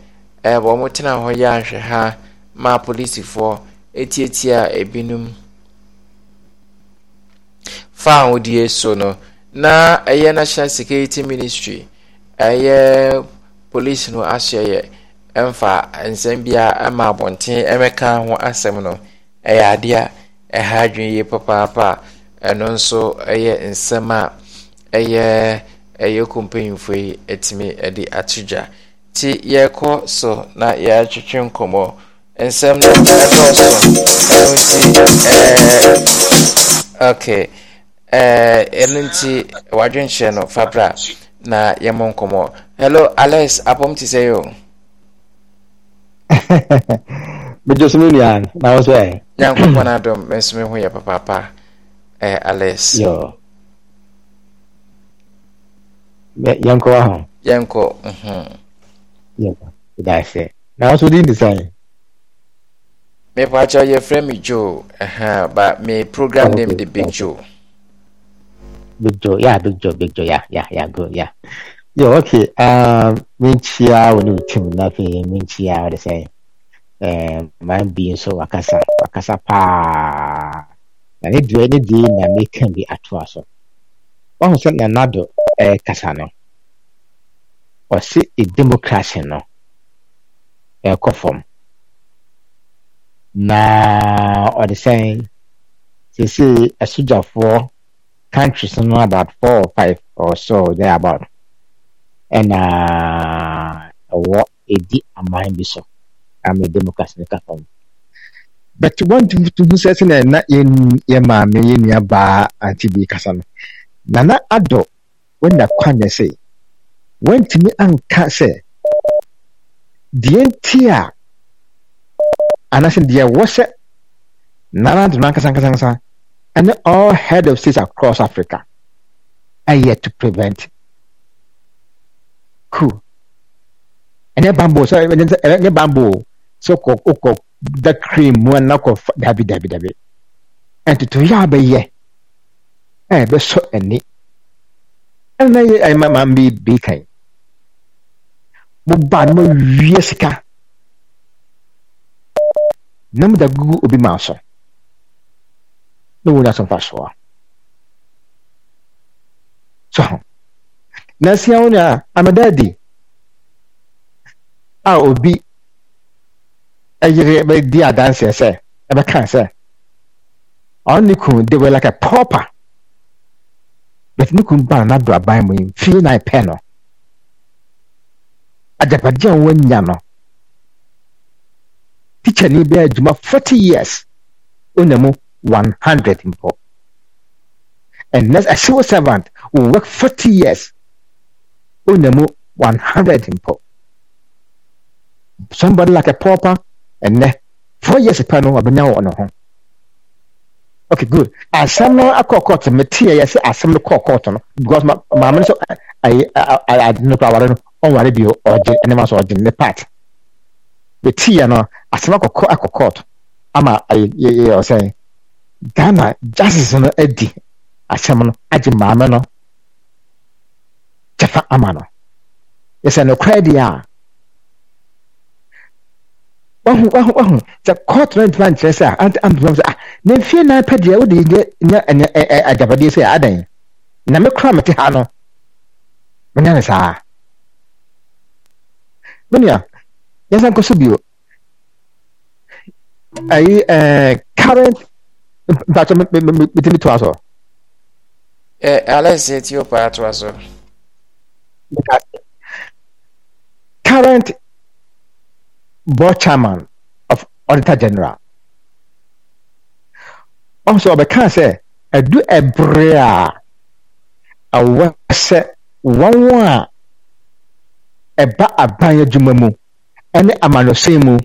ɛɛ wɔn tena hɔ yɛ ahwɛ ha ma polisifoɔ etietia ebinom fa ahodie so no na ɛyɛ national security ministry ɛyɛ. polisi no ahyɛ yɛ mfa nsɛm biara ma abɔnten mɛka ho asɛm no ɛyɛ adeɛ a ɛha adwene yie papaapa a ɛno nso ɛyɛ nsɛm a ɛyɛ ɛyɛ kompanyinfo yi atumi ɛde ato gya nti yɛkɔ so na yɛatwetwe nkɔmɔ nsɛm no ɛdɔɔso ɛno nti ɛɛ ok ɛɛɛ ɛno nti wadwenkyerɛ no fabra na yɛmmɔ nkɔmmɔ hello alex apɔm te sɛ yo megye so me nua na wo sɛ nyankopɔn adom me nso me ho yɛ papaapa eh, alex yo yɛnkɔ wa ho yɛnkɔ mhm. yɛnkɔ na wo so din de sɛn mepɛ akyɛ yɛfrɛ me joe uh -huh, but me program oh, okay. name de big joe big Joe, yeah, big Joe, big Joe, yeah, yeah, yeah, good, yeah. Yeah, okay. Um, minchia, chia when you trim nothing, Minchia, what they say. Um, my being so wakasa, wakasa pa. And ne do any day na me can be at was. one sọ na nado eh kasa no. Ɔsi e democracy no. Ɛkɔ fam. Na ɔde sɛn sese asogyafoɔ countries no about four or five or so there about and ɛna uh, a ɛdi aman bi so ama democracy ne ka fam but wɔntumi tuhu in. sɛnɛ na yɛ maame yɛ nuabaa ante bi kasa no nana adɔ wanya kwanya sɛ wɔntumi anka sɛ deɛ the entire anaasɛ deɛ wɔ sɛ nana adɔ no ankasa ankasa ankasa and all head of states across Africa are yet to prevent coup. And then bamboo, so and bamboo, so kok okok the cream one knock of dabi dabi dabi. And to ya be ye, eh be so any. And I am a man be be kind. Mo ban mo wieska. Namu da gugu maso. Nulla som farsa. So, nasi ya I'm a daddy. A obi ɛyere bɛdi adanseɛ sɛ ɛbɛka sɛ ɔne ne kun de were like a pauper but ne kun ban n'ado aban mu yi fii na pɛ no agyapadeɛ a wanya no tikya ni bɛ adwuma forty years ɔnya mu 100 mpo ɛnɛ civil servant who worked 40 years ɔnya mu 100 mpo somebody like a pauper and four years pɛ no wabɛnya wɔ ne ho okay good asɛm no akɔ kɔɔto meteɛ yɛ sɛ asɛm no kɔɔ kɔɔto no because maame no so ade no kora oh, aware no ɔnware bio ɔgye ne part. The ɔgye ne part meteɛ no asɛm court, akɔ kɔɔto ama ɔsɛn ghana justice no adi ahyɛm no agye maame no kyɛfa ama no yɛsɛ nokorɛ deɛ a wahu wahu wahu sɛ court no ntoma nkyerɛ sɛ a ampam sɛ ah na mfie nan pɛ deɛ wode nyɛ agyapadeɛ sɛ adan na me kora mete ha no menyɛ ne saa menua yɛnsa nkɔ so bio ayi current mpatsɔ mitimi to aso. ɛ e, alex e, eti o para to aso. current board chairman of auditor general ɔsɔ ɔbɛka sɛ ɛdu ɛbrɛ a ɛwɔ sɛ wɔn a ɛba aban adwuma mu ɛne amanosen mu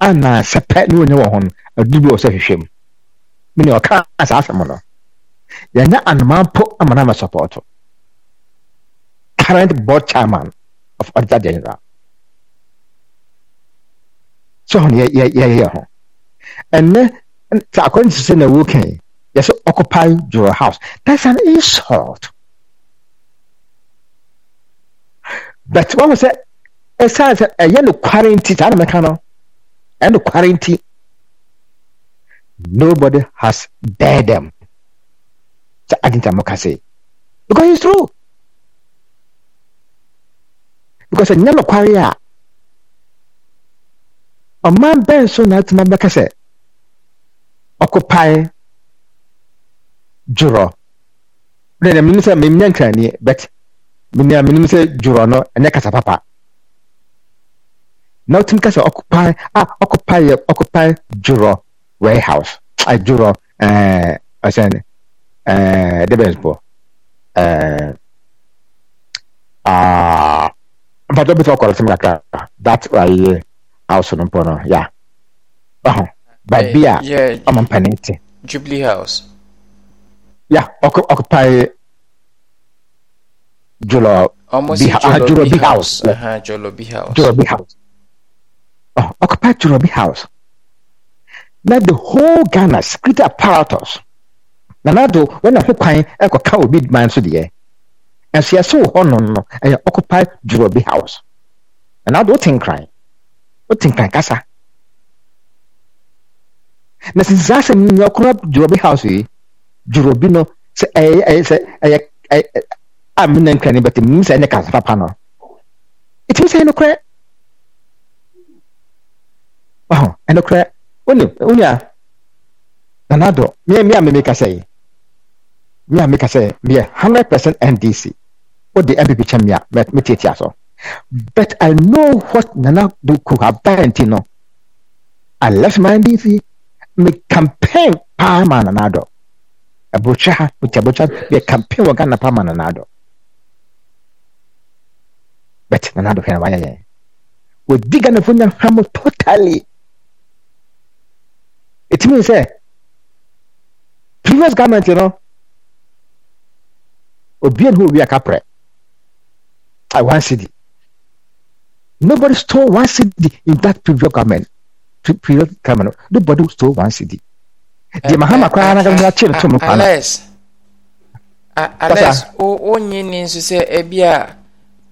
anaasɛpɛ ne wɔnyɛ wɔn ho no ɛdu bi wɔ sɛ hwehwɛ mu. mene ɔka saa asɛm no yɛnyɛ anoma mpo ama no amasɔpɔɔto current board chairman of auditor general sɛ hɔ no yɛyɛ ho ɛnɛ sɛ according to sɛ na wokan yɛsɛ occupy your house that's an insult but wahu sɛ ɛsiane sɛ ɛyɛ nokware nti saa na mɛka no ɛyɛ no quarantine. Nobody has dared them. Sa ating tamokase. Because it's true. Because a nyalo kwari a ɔman bɛn so na atuma bɛka sɛ ɔkopae dworɔ ne na menim sɛ memnya nkraniɛ but menea menim sɛ dworɔ no ɛnyɛ kasa papa na wotumi ka sɛ ɔkopae a ɔkopaeɛ ɔkopae dworɔ warehouse adwuro ɛɛ ɔsɛn ɛɛ debes bɔ aa mpatɔ bi sɛ ɔkɔlɔ sɛm kakra that ayɛ house no mpɔ ya ɔhɔ baabi a ɔmo mpanin ti. jubilee house. ya ɔkɔ ɔkɔpae jolo bi ha jolo bi house. jolo bi house. jolo bi house. bi house. Oh, na the whole ghana security apparatus na nado wɔn ho kwan kɔka obi man so deɛ nso yɛsɛ wɔ hɔnom no ɛyɛ occupy jurobi house na nado wote nkran wote nkran kasa na sisi saa asɛm nyɛ ɔkora jurobi house yi jurobi no sɛ ɛyɛ ɛyɛ sɛ ɛyɛ ɛyɛ a mi na nkran bɛtɛ mi sɛ ɛne kasa papa no etimi sɛ ɛnokorɛ ɔhɔn ɛnokorɛ wone wonua nana me miɛ miɛ a mimi Me yi miɛ a mimi kasa yi hundred percent ndc o de npp kyɛn miɛ mɛ mi tietia so but i know what nana do ko a ba no i left my ndc Me campaign paa ma nana dɔ abotwa ha oti abotwa miɛ campaign wɔ ghana paa ma nana but nana dɔ fɛn wa yɛ yɛn wodi ghana hamu totally it means sɛ previous government no obi ne ho obi a kaprɛ i one cd nobody stole one cd in that previous government previous government nobody stole one cd deɛ eh, mahama koraa na gbɛdɛ akyi ne to mu kwan na alex wonye eh, ne nso sɛ ebi a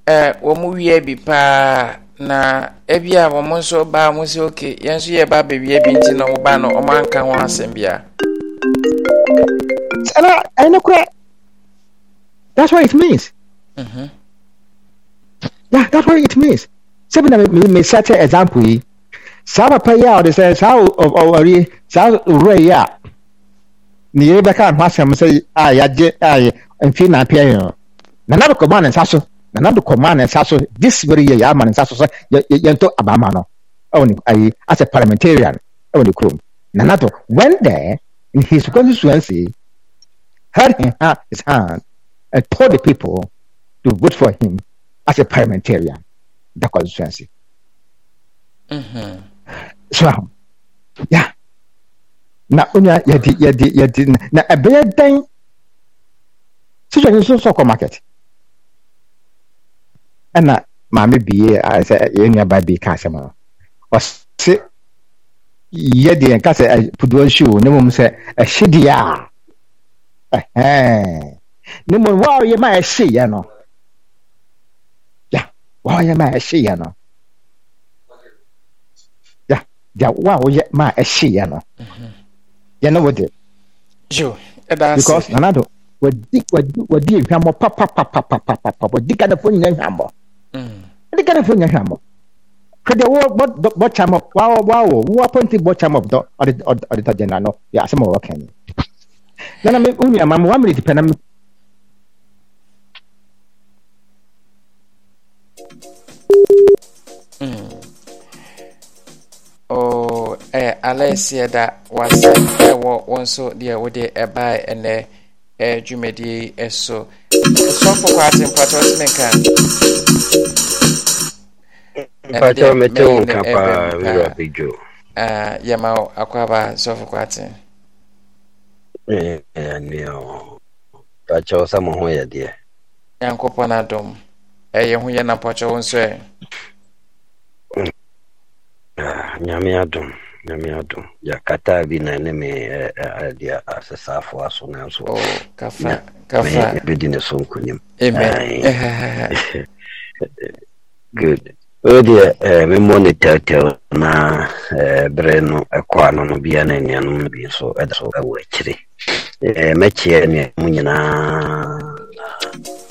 eh, wɔn wia bi paa na ebi a wɔn nso baa wɔn si oke yɛn nso yɛ baa beebi ebi nti na wɔn baa no wɔn anka ho asɛm bia. ɛna ɛna kura that's what it means. Mm-hmm. yeah that's what it means. sɛbi na mi mi sɛte example yi saa papa yi a ɔde sɛ saa ɔwɔri saa owurɔ yi a ne yɛ bɛka ho asɛm sɛ a yagye a yɛ mfe na apia yɛn no na nabɛkɔ bɔ ne nsa so. Nanato nado kɔmaa ne nsa so this very year man ne nsa so sɛ yɛntɔ abaama no ɛwɔ ne ayi as a parliamentarian ɛwɔ ne kurom Nanato when there in his constituency held in his hand and told the people to vote for him as a parliamentarian the constituency. Mm-hmm. so yeah na onyaa di yɛde di na ɛbɛyɛ dɛn situation nso sɔkɔ market. ɛna maame bi yɛ sɛ yɛn nuaba bi ka asɛm no ɔsi yɛ deɛ nka sɛ puduwa nsi o ne mu sɛ ɛhye deɛ a ne mu wa ɔyɛ ma ɛhye yɛ no ya wa ɔyɛ ma ɛhye yɛ no ya ya wa ɔyɛ ma ɛhye yɛ no yɛ no wɔ de. jo ɛda ase wadi wadi wadi ehwamɔ papapapapapapa wadi kanafo nyinaa ehwamɔ ɛne ghanafoɔ nya hwɛ amɔ hwɛ deɛ bɔkyam up waawɔ woapɔnti bɔkyam up dɔ ɔde tɔ gyena no yɛ asɛm ɔwɔ ka ni nana me mm. oh, eh, eh, wo nuama m wamerɛti pɛ na me ɛyɛ alɛɛseɛ da wasɛ ɛwɔ wo nso deɛ wode ɛbae eh, ɛnɛ eh, dwumadie yi so sɔfo kɔ ate mpatɔ ɔtumi nka mpatɔ mete wo nka paa wura bedwo yɛma wo akɔaba sɔfo kɔ ate ɛnea e, pakyɛ wo sɛ mo na nyame adɔ gyakata bi na ne me ade eh, eh, eh, asesaafoɔ aso nanso bɛdi oh, ne so nkonim good odeɛ memmɔ ne tɛwtɛw na berɛ no ɛkɔ ano no bia na nnuanom no bi nso ɛda so ɛwɔ akyire mɛkyeɛ nnuanom nyinaa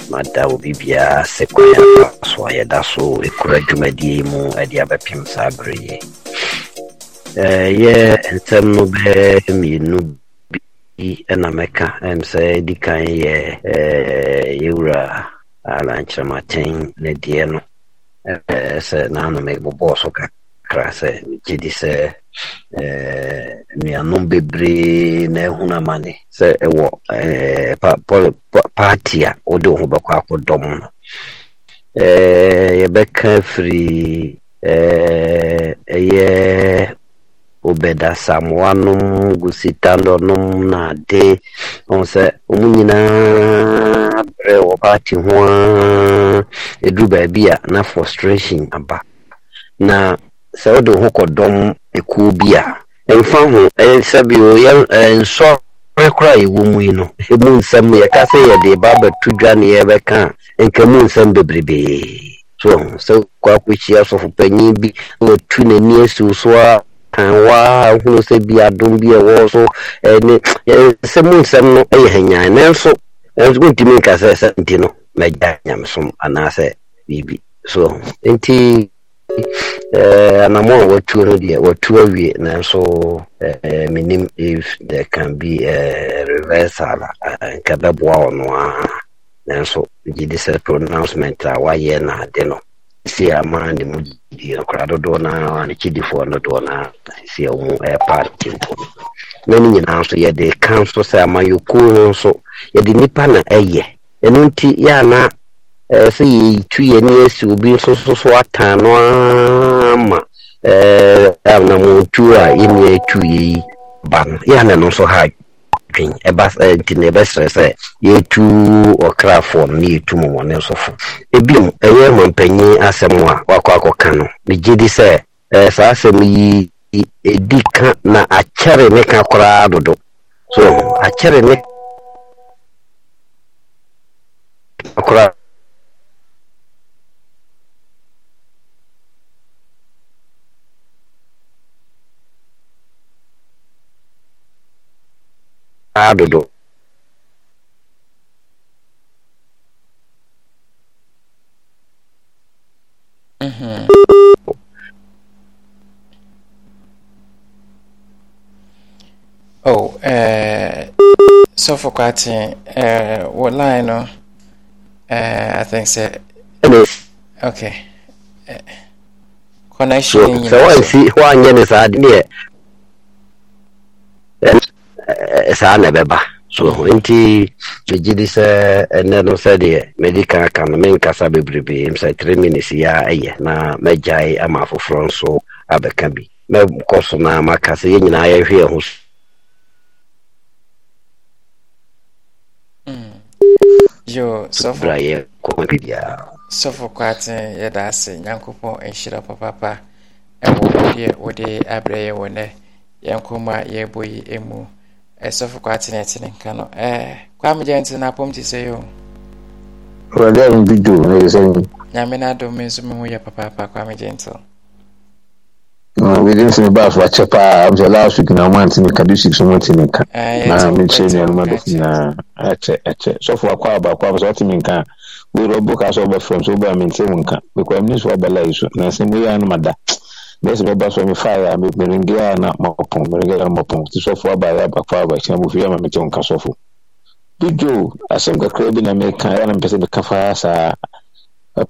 mada obi biara sɛ kwan so a so ɛkura dwumadie mu ɛde abɛpem saa berɛ yɛ ɛyɛ eh, nsɛm no bɛɛ mmienu bi ɛna mɛka sɛ di kan yɛ eh, yɛwura alankyerɛmaten ne deɛ no sɛ naano so kakra sɛ megye di sɛ nnuanom bebree na ɛhunu amane sɛ ɛwɔ party a wode wo ho bɛkɔ obeda samwanum gụsitalụnụm na adị ọsẹ ọmụ nyinaa brɛ wɔ paati ho a ɛduru baabi a na frustration aba na sɛ wode ho kɔdɔm ekuo bi a ɛmfa ho sɛbio nsɔre koraa a ɛwɔ mu yi no ɛmu ka yɛka sɛ de ba bɛto dwa ne yɛbɛka a nka mu nsɛm bebrebee so sɛ kɔ akɔhyia sɔfopanyin bi wɔtu n'ani asiw so a kan ahunu sɛ bi adum bi ɛwɔ so ɛne nsɛm nsɛm no ɛyɛ hanyan nanso ɛnso nka sɛ sɛ nti no mɛgya nyamesom anaasɛ biribi so nti anamɔ a watuo no deɛ watuo awie nanso menim if there can be a reversal nka bɛboa ɔno a nanso gye de sɛ pronouncement a wayɛ na ade no sisi ama ne mu gyidi akwadaa dodoɔ na a n'akyidifoɔ no dodoɔ no a sisi e, a wɔn ɛrepa ntempo no na ne nyinaa nso yɛde ka nso sɛ amayɔkuo no nso yɛde nipa na e ɛyɛ ɛno nti yɛana ɛɛ sɛ yɛtu yɛ ne asi obi nso so so ata no ama ɛɛ anamotuo a yɛn nyɛ tu yɛ yi ba no yɛana no nso ha twi ɛba nti eh, ne bɛsrɛ sɛ yɛtu ɔkrafoɔ no ne yɛtu mɔmɔne nsɔfo ebim ɛyɛ mampanyi asɛm a wakɔ akɔka no megye di sɛ eh, saa asɛm yi ɛdi ka na akyɛre ne ka koraa dodo so akyɛre ne koraa dodo mm-hmm. oh eh sọfọ kwatin eh wọ line no eh i think say hello okay eh, connection so, so why see why nyɛ ne saa deɛ saa na ɛbɛba so nti megye di sɛ ɛnɛ no sɛdeɛ mede ka ka no menkasa bebrebee m sɛ tre minutes yi a ɛyɛ na mɛgyae ama afoforɔ nso abɛka bi mɛkɔ so na maka sɛ yɛn nyinaa yɛhwe ho hmm. bra yɛ kɔma bi biara sɔfo kwaten yɛda ase nyankopɔn nhyira papapa ɛwɔ deɛ wode abrɛ yɛ wɔ nɛ yɛnkɔma yɛbɔ yi mu ɛsɔfo kwa atenetene nka eh, no kwame gye nte no apɔm te sɛ yɛ o wurade a mbi do na ɛsɛ mu nyame no adom me nso me ho yɛ papaapa kwame gye nte wede nsɛ mebaa so akyɛ paa msɛ last week na mante ne ka district so mante ka na mekyerɛ nuanom adɔfo nyinaa akyɛ akyɛ sɔfo akɔ a baakɔ a sɛ wote me nka a wɔrɛ ɔbɔ ka sɛ ɔbɛfrɛ m sɛ wobaa mente wo nka bɛkɔ amne so wabɛla so na sɛ moyɛ a no mada bɛsi bɛba so mefaeɛ a merengea na mapɔ merengea na mapɔ nti sɔfo abaeɛ abakɔ aba kyena mofie ama mete wo nka sɔfo bidwo asɛm kakra bi na meka ɛa na mpɛ sɛ meka faa saa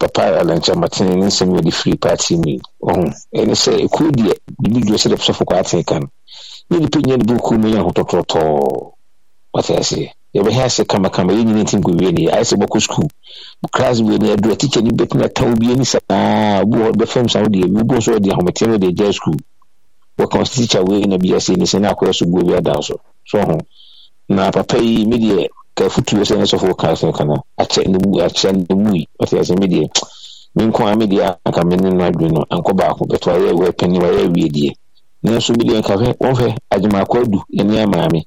papa alankyɛmatene ne nsɛm yɛde firi party ni ɔho ɛne sɛ ɛkuo deɛ bidwo sɛde sɔfo kɔ atee ka no ne nipa nya ne bɛkuo mu yɛ ahotɔtɔtɔɔ wate aseɛ yɛbɛhɛ ase kamakama yɛ nyina ntim kɔwie ne ayɛ sɛ bɔkɔ skul class wie ne ni bɛtumi ata wo bie ni saa bi wɔ bɛfam sa wode bi wobɔ so wɔde ahometeɛ no de agya skul wɔka wo tikya wei na bia sei sɛ ne akɔyɛ so guo bi ada so so ho na papa yi me deɛ ka futuo sɛ ne sɔfo ka sɛ kana akyɛ ne mu akyɛ ne mu yi ɔte asɛ me deɛ me nko a me deɛ anka me ne no adwe no ankɔ baako bɛto ayɛ wɔ pɛni wɔyɛ awie deɛ nanso me nka hwɛ wɔmfɛ agyemaakɔ adu ɛne amaame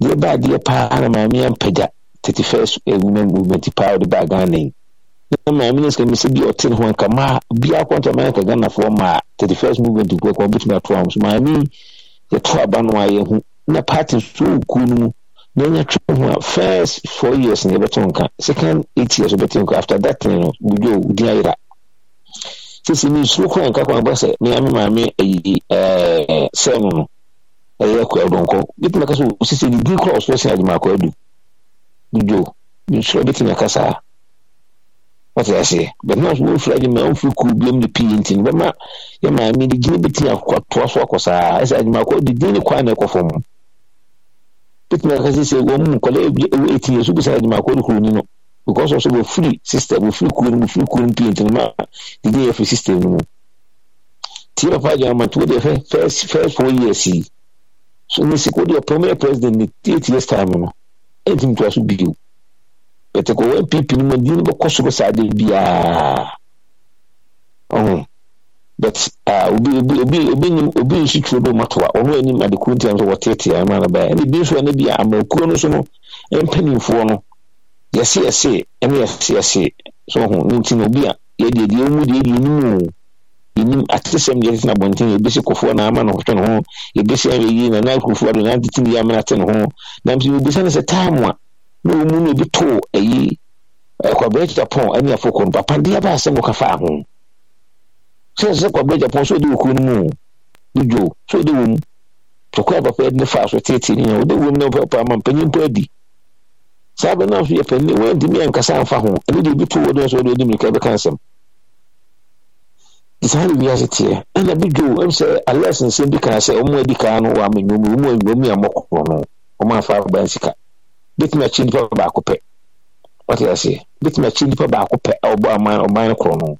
deɛ baa deɛ paa na maame ampagya thirty first woman movement paa ɔde baa ghana yi na maame no sika mi sɛ bi ɔte ne ho nka maa biara kɔntɔ maa nka ghanafoɔ maa thirty first movement kura kɔ ɔbɛtumi ato ahom so maame yɛto aba no a yɛho na party nso kuo no mu na ɛnya twɛ ho a first four years na yɛbɛto nka second eight years ɔbɛte nka after that ten no budwo din ayera sisi mi nsuro kora nka kwan bɔ sɛ maame maame ayi ɛɛ eh, sɛn no no ɛyɛ kɔ ɛdɔnkɔ bitumi na kasa osisi ne din kora ɔsoro sin adwuma akɔ adu dudwo nsoro bitumi aka saa wɔte aseɛ bɛn naa wɔn firi adwuma wɔn firi kuru biam ne pii nti ne bɛma yɛ maame ne gyina bitumi akɔtoa so akɔ saa ɛsɛ adwuma akɔ adi ne kwan na ɛkɔ fam bitumi aka sisi wɔn mu nkɔla ebi ewu eti yɛ so bisa adwuma akɔ ne kuro ni no because ɔso wɔfiri system wɔfiri kuro no mu wɔfiri kuro no pii nti ne ma didi yɛ firi system no mu tie papa adwuma ma to wɔde fɛ first first four years yi so ne sɛ kodeɛ ɔpɛmɛ president ne tietie star mu no ɛntimi toa so bio bɛtɛ kɔwɔ npp no mu adi no bɛkɔ soro saa de biaa ɔho but obi obi obi obi nim obi nsi tuo do matoa ɔno anim adekuru ntiam so wɔtetea ɛma no bɛɛ ɛna ebi nso ɛna bi a amankuo no so no mpanimfoɔ no yɛse yɛse ɛne yɛse yɛse so ɔho ne nti na obi a yɛde yɛde ɛmu deɛ yɛde ɛnum o yɛnim atesɛm deɛ tete no abɔnten yɛbɛsi kɔfoɔ na ama no hwɛ ne ho yɛbɛsi awɛyi na na akurofoɔ ado na tete ne yɛamena te ne ho nam sɛ yɛbisa no sɛ time a na ɔmu no bi too ayi kwabrɛ japan ani afokɔ no papa deɛ baa sɛ moka faa ho sɛ sɛ kwabrɛ japan sɛ ɔde wɔ kuro no mu ne dwo sɛ ɔde wɔ mu tɔkɔ a papa ne faa so teetee ne ɔde wɔ mu na papa ama mpanyin mpo adi saa bɛ no nso yɛ panin wɔntumi ankasa amfa ho ɛno deɛ bi too wɔ no sɛ ɔde ɔde mmirika bɛka nsɛm saa na wiase teɛ ɛna bi dwo ɛmu sɛ alex nsɛm bi kaa sɛ ɔmo adi kaa no wɔ amanyɔmu ɔmo anyɔmu yɛ mɔkɔkɔ no ɔmo afa aban sika bitumi akyi nipa baako pɛ ɔte aseɛ bitumi akyi nipa baako pɛ a ɔbɔ aman ɔman korɔ no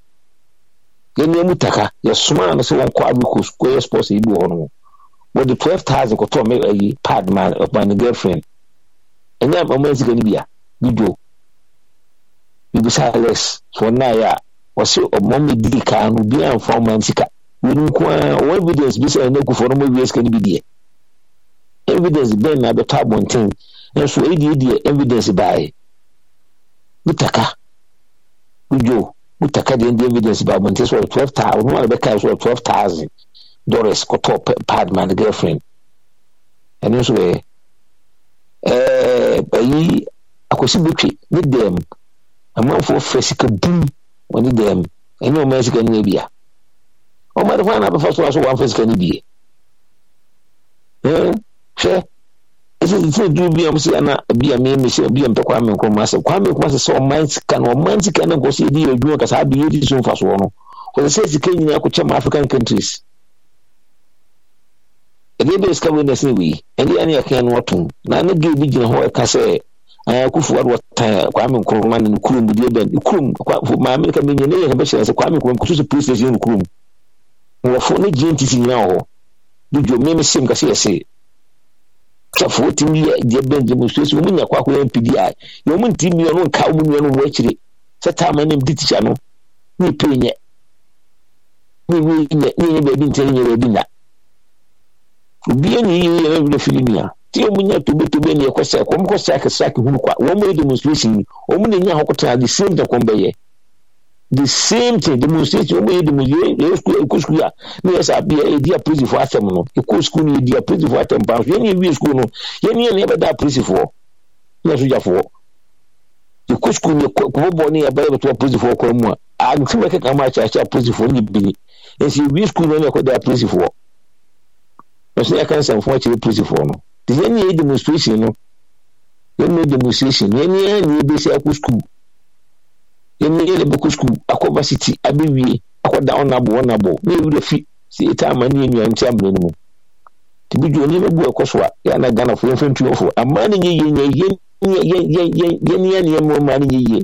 yɛn mu taka yɛsoma ano sɛ wɔn kɔ abiko square sports yi bi wɔ hɔ no wɔde twelve thousand kɔtɔ ɔmo ayi pad man ɔman ne girlfriend ɛnyɛ ɔmo nsika no bia bi dwo bibisa alex so a wɔsi ɔmo mi di kan no bi anfa ɔmo an sika wɔn nko ara wɔn evidence bi sɛ ɛna kufuo no mo sika no bi deɛ evidence bɛn na abɛtɔ abɔnten nso ediedie evidence baaɛ mutaka ojo mutaka deɛ ndi evidence baa abɔnten sɛ twelve thousand ɔmo a bɛka twelve thousand dollars kɔtɔ pad man girlfriend ɛno nso yɛ e, ɛɛ e, ayi e akwasi betwi ne dɛm amanfoɔ fɛ sika bum wɔne dɛm ɛnyɛ ɔma sika no bia ɔma de hɔ na bɛfa so aso wɔamfa sika no bie hwɛ ɛsɛ sɛ duru bi a ɔmsɛ ana bi a meme sɛ bi a mpɛ kwame nkrɔma asɛm kwame nkrɔma sɛ sɛ ɔman sika no ɔman sika no nkɔ sɛ yɛ adwuma kasa abɛ yɛdi so mfasoɔ no wɔsɛ sɛ sika nyinaa kɔkyɛ ma african countries ɛdeɛ bɛɛ sika wei na sɛ wei ɛdeɛ ne yɛka no ɔtom na ne duru bi gyina hɔ ɛka e kufuwar wata kwame nkrumah ne kurum deɛ bɛn kurum maame ka menyɛ ne yɛ bɛkyerɛ sɛ kwame nkrumah kɔtoso police station no kurum wɔfo ne gntc nyinaa wɔ hɔ dodwo meme sem ka yɛse sɛfo wotumi yɛ deɛ bɛn demonstration mu nya kɔ akɔyɛ mpidi a yɛ ɔmo nti mmea no nka ɔmo nnua no wɔ akyire sɛ taama ne mdi tikya no ne pɛ nyɛ ne nyɛ baabi ntɛ ne nyɛ baabi nya obiara ne yie yɛ bɛbi fili nua tí wɔn nya tobetobe ne ɛkɔ sɛk wɔn kɔ sɛk sɛk hunu kwa wɔn yɛ demonstration yi wɔn na nya ahokota the same thing kɔn bɛyɛ the same thing demonstration wɔn yɛ demonstration yɛ sukuu ekɔ sukuu a ne yɛ sɛ yɛ edi apolisifo atɛm no ekɔ sukuu no yɛ di apolisifo atɛm pan so yɛn ni ewie sukuu no yɛn ni yɛn na yɛbɛda apolisifoɔ ne sojafoɔ ekɔ sukuu no kɔkɔ bɔ ne yɛ bɛyɛ bɛtɔ apolisifoɔ kɔn mu a agbɛn kɛkɛ ama akyɛ akyerɛ yɛn na yɛ demonstration no yɛn na yɛ demonstration yɛn na yɛ bɛsi akɔ school yɛn na yɛ na bɛkɔ school akɔ varsity abɛwie akɔ da ɔnabɔ ɔnabɔ na yɛ wura fi si eta ama ne yɛ nua nti amena no mu tibi dwo nneɛma gu ɛkɔ so a yɛ ana ghana fo yɛn fɛn tuyɔ fo amaa ne yɛ yɛn yɛn yɛn yɛn yɛn yɛn yɛn nneɛma ɔmaa ne yɛ yɛ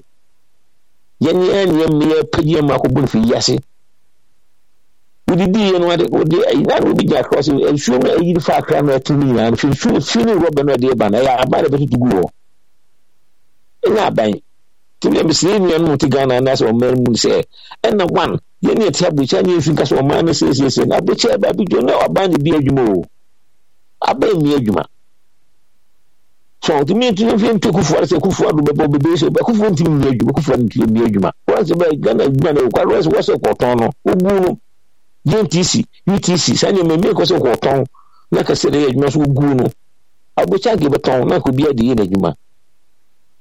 yɛn nneɛma yɛn mmea pɛgye yɛn mako bɔ ne fi yi ase wodidi yɛ no wode ɛyina na obi gya akora sɛ nsuo no ɛyiri fa akra no ɛto no nyinaa no fi nsuo fi ne rɔba no ɛde ba no ɛyɛ aban na ɛbɛtoto gu hɔ ɛnyɛ aban nti bia mesrɛ nnua no te ghana anaasɛ ɔman mu sɛ ɛna one yɛne yɛte abokya ne yɛmfi nka sɛ ɔman no sɛsiesie no abokya ɛba bi dwo na aban ne bi adwuma o aban nni adwuma so ntumi ntumi mfi ntu kufuwa sɛ kufuwa do bɛbɔ bebree sɛ kufuwa ntumi nni adwuma kufuwa ntumi nni adwuma wɔn sɛ bɛ ghana adwuma no ɛwɔ kwa wɔn sɛ wɔsɛ kɔtɔn no ogu no gntc utc saa nneɛma mmea kɔ sɛ wɔtɔn na kɛse de yɛ adwuma nso gu no abɔkya age bɛtɔn na kɔ biara de yɛ n'adwuma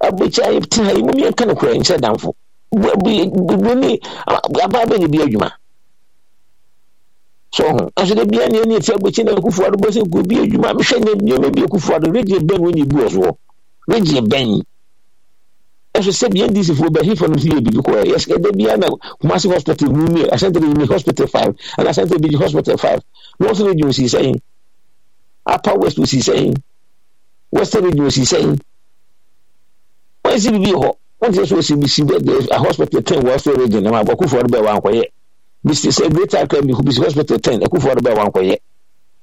abɔkya te ha yi mu mmiɛnka no korɛ nkyɛ damfo bɔne abaa bɛ ne bi adwuma so ho nso de bia ne ne ti abɔkya na akufoɔ ado bɔ sɛ kɔ bi adwuma mehwɛ nneɛma bi akufoɔ ado regye bɛn wɔn nyɛ bu ɔsoɔ regye bɛn ɛso sɛbi ndcfoɔ bɛhefo no yɛ biribi kɔɛ yɛsɛ da bia na kumase hospital mu mie asante de yimi hospital five ana asante de yi hospital five north region si sɛn upper west si sɛn western region si sɛn wɔn si biribi hɔ wɔn ti sɛ so si bi si bɛ de a hospital ten wɔ western region na ma bɔ kufuor bɛ wɔn akɔyɛ bisi sɛ greater akra bi bisi hospital ten ɛkufuor bɛ wɔn akɔyɛ.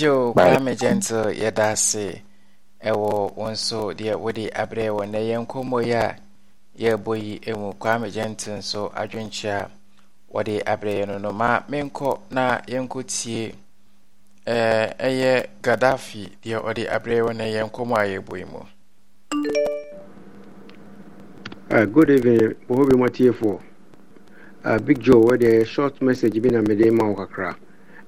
yo kwame gentle yɛda ase ɛwɔ wo nso deɛ wode abre wɔ nɛ yɛ nkɔmmɔ yi a yɛbɔ yi mu kwame gentle nso adwenkyea wɔde aberɛ yɛ no no ma menkɔ na yɛnkɔtie ɛyɛ gaddafi deɛ ɔde aberɛ wɔ nɛ yɛ nkɔmmɔ a yɛbɔ yi mu Uh, good evening, Bohobi Matiefoɔ. Uh, eh, Big Joe, where the short message bi na mede ma wo kakra.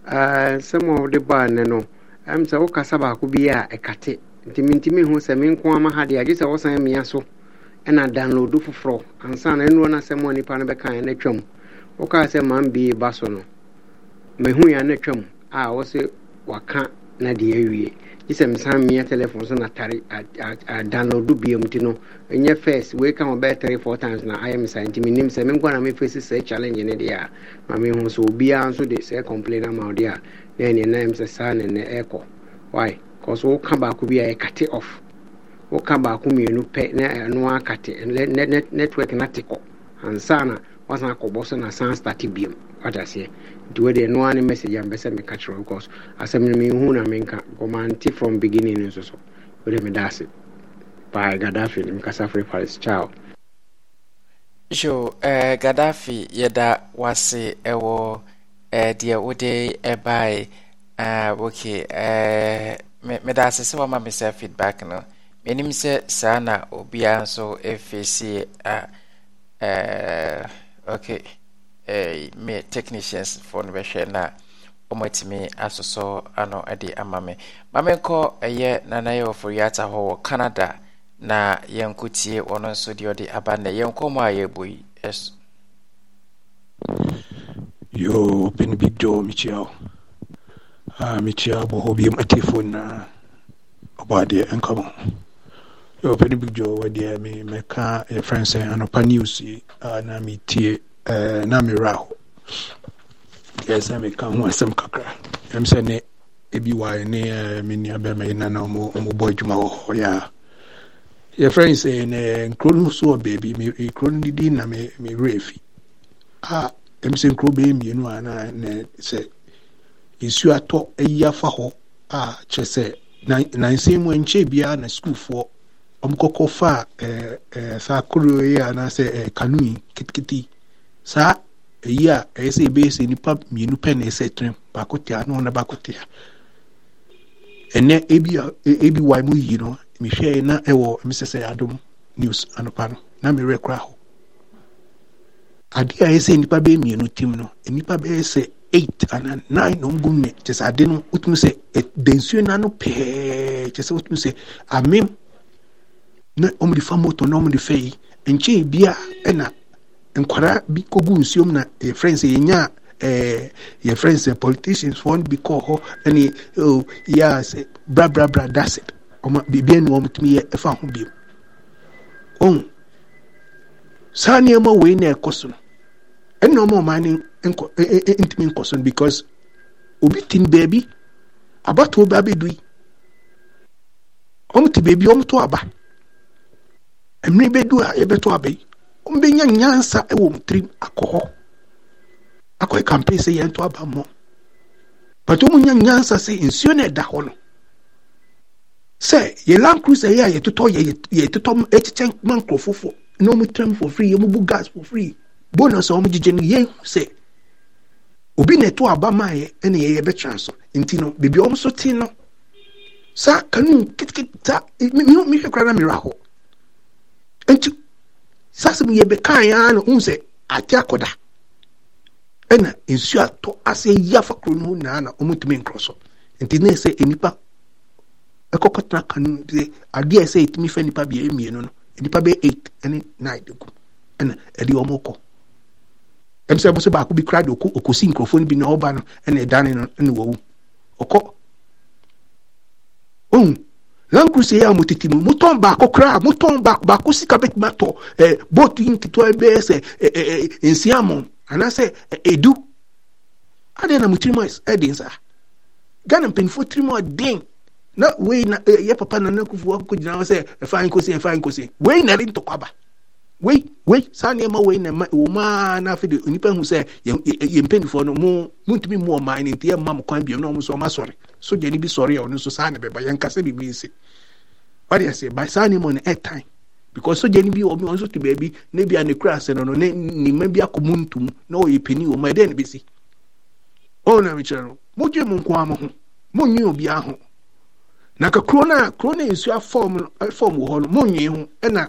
nsɛm eh, a wode baa nne no ɛm sɛ wokasa baako bi a ɛkate nti mentimi ho sɛ me nko ama ha deɛ agye sɛ wosan mmea so ɛna download foforɔ ansa na ɛnoɔ no asɛm a nnipa no bɛkaeɛ no atwam wokaa sɛ ma ba so no mahu ya no atwam a wo waka na deɛ awie isɛ mesan mia telephone so na tare adownload biam nti no ɛnyɛ first weika ho bɛyɛ three four times na ayɛ me saa nti menim sɛ menkɔ na mefɛsi sɛ challenge ne deɛ a ma mehu obiara nso de sɛ complain ama wo deɛ a na ɛneɛ na ɛm sɛ saa ne nnɛ ɛkɔ why bcause woka baako bi a ɛkate off woka baako mmienu pɛ na ɛno akate network na te kɔ ansa na wasan akɔbɔ so na san starte biom wataseɛ nti wodeɛ no a ne message ampɛ sɛ meka kyerɛ because asɛm no mehu na menka ɔmante from beginning nso so wode meda ase paa gadafi ne mekasa fre paris chao So eh, gadafi yɛda wase ɛwɔ eh, deɛ wode ɛbae eh, uh, ok eh, meda ase sɛ wama me sɛ feedback no menim sɛ saa na obiara nso ɛfɛsie a eh, eh okay eh, me technicians for no bɛhwɛ na ɔmatumi asosɔ ano de ama me ma menkɔ ɛyɛ nanayɛwɔfo yiata hɔ wɔ canada na yɛnkɔtie ɔno nso deɛ ɔde aba nnɛ yɛnkɔ mu a yɛbɔ yi ɛso yo pin big joe mekyia ah, mekyia bɔ hɔ biam atiefoɔ na ɔbɔ adeɛ nkɔmɔ yɛwɔ pɛ no big joe wɔ deɛ me mɛka yɛfrɛ sɛ anɔpa news yi na metie na merɛ ho deɛ sɛ meka ho asɛm kakra ɛm sɛ ne ebi wae ne me nua yi na na ɔmobɔ adwuma wɔ hɔ yɛ a yɛfrɛ sɛ ne nkuro no so wɔ baabi kuro no didi na mewerɛ fi a ɛm sɛ nkuro bɛyɛ mmienu a na sɛ nsuo atɔ ayi afa hɔ a kyerɛ sɛ nansɛn mu ɛnkyɛ biara na sukuufoɔ wɔmkɔkɔ fa eh, eh, saa koro eh, e, yi anaasɛ kanu yi kitikiti saa ɛyi a ɛyɛ sɛ ɛbɛyɛ sɛ nipa mmienu pɛ na ɛsɛ tene baako tia na ɔna baako tia ɛnɛ ebi ebi wa mu yi no mehwɛ yi na ɛwɔ mesɛsɛ adom news anopa no na mmerɛ kora hɔ adeɛ a ɛyɛ sɛ nipa bɛyɛ mmienu tim no nipa bɛyɛ sɛ eight ana nine na ɔmo gu mu kyɛ ade no wotumi sɛ ɛdɛnsuo na no pɛɛ kyɛ sɛ wotumi sɛ amem na wɔde fa moto na wɔde fɛ yi nkyɛn bia na nkwadaa bi kɔgu nsuom na yɛfrɛ nsɛ yɛnya ɛɛ eh, friends nsɛ eh, politicians wɔn bi kɔɔ hɔ ɛne o oh, yɛa sɛ brabrabra dasɛ wɔn biribiara na wɔn tumi yɛ ɛfa ho bio ohun saa nneɛma wei na ɛkɔ so no ɛna wɔn ɔman ne nkɔ ɛɛ e, ɛɛ e, e, ntumi nkɔ so no because obi ti ne beebi abatoɔ bi abɛdu yi wɔn ti beebi wɔn to aba. mmiri bɛdu a yɛbɛto aba yi ɔmbɛnya nyansa e wɔ mu tirim akɔ hɔ akɔyɛ e campaign sɛ yɛnto aba mmɔ but ɔmunya nyansa sɛ nsuo no ɛda hɔ no sɛ yɛ land cruiser yi a yɛtotɔ yɛ yɛtotɔ e ma nkurɔfofoɔ na ɔmo tirim for free ɔmo gas for free bonus a ɔmo gyegye no sɛ obi na ɛto aba maa yɛ ɛna yɛyɛ bɛtwɛn nti no beebi a ɔmo so nti saa asɛm yɛ bɛkaa yɛ ara na ohun sɛ ate akɔda ɛna nsuo atɔ ase yi afa kuro no ho nyinaa na wɔn ntumi nkorɔ so nti ne sɛ nipa ɛkɔkɔ tena kanu sɛ adeɛ sɛ etumi fɛ nipa bia mmienu no nipa bɛ eight ɛne nine de gu ɛna ɛde wɔn kɔ ɛmu sɛ ɛmu sɛ baako bi kura de oko okosi nkurɔfoɔ no bi na ɔba no ɛna ɛdan no ɛna wɔwu ɔkɔ ohun. Ram kuse ya mutiti mu muton baako koraa muton baako baako sika bɛtumi atɔ ɛɛ booti nketewa bɛyɛ sɛ ɛɛ ɛɛ nsiamɔ anaasɛ edu adeɛ na mu tirimu ɛdi nsa ghana mpanyinfoɔ tirimu ɛden na wei na ɛyɛ papa na kufu akoko gyina hɔ sɛ ɛfa eh, nkosi ɛfa eh, nkosi wei na ɛde ntɔkwa ba. wei wei saa na wɔ mu na de nnipa hu sɛ yɛ mpanimfoɔ no mu muntumi mu ɔman no nti yɛmma mo kwan biom na ɔmo nso ɔma sɔre sogyani bi sɔre a ɔno nso saa bɛba nsi saa nneɛma no ɛtan because bi nso te baabi ne bi a ne kura ase bi akɔ mu na ɔyɛ panin wɔ mu na mekyerɛ no modwe nko ho obiara na ka kuro kuro afɔm afɔm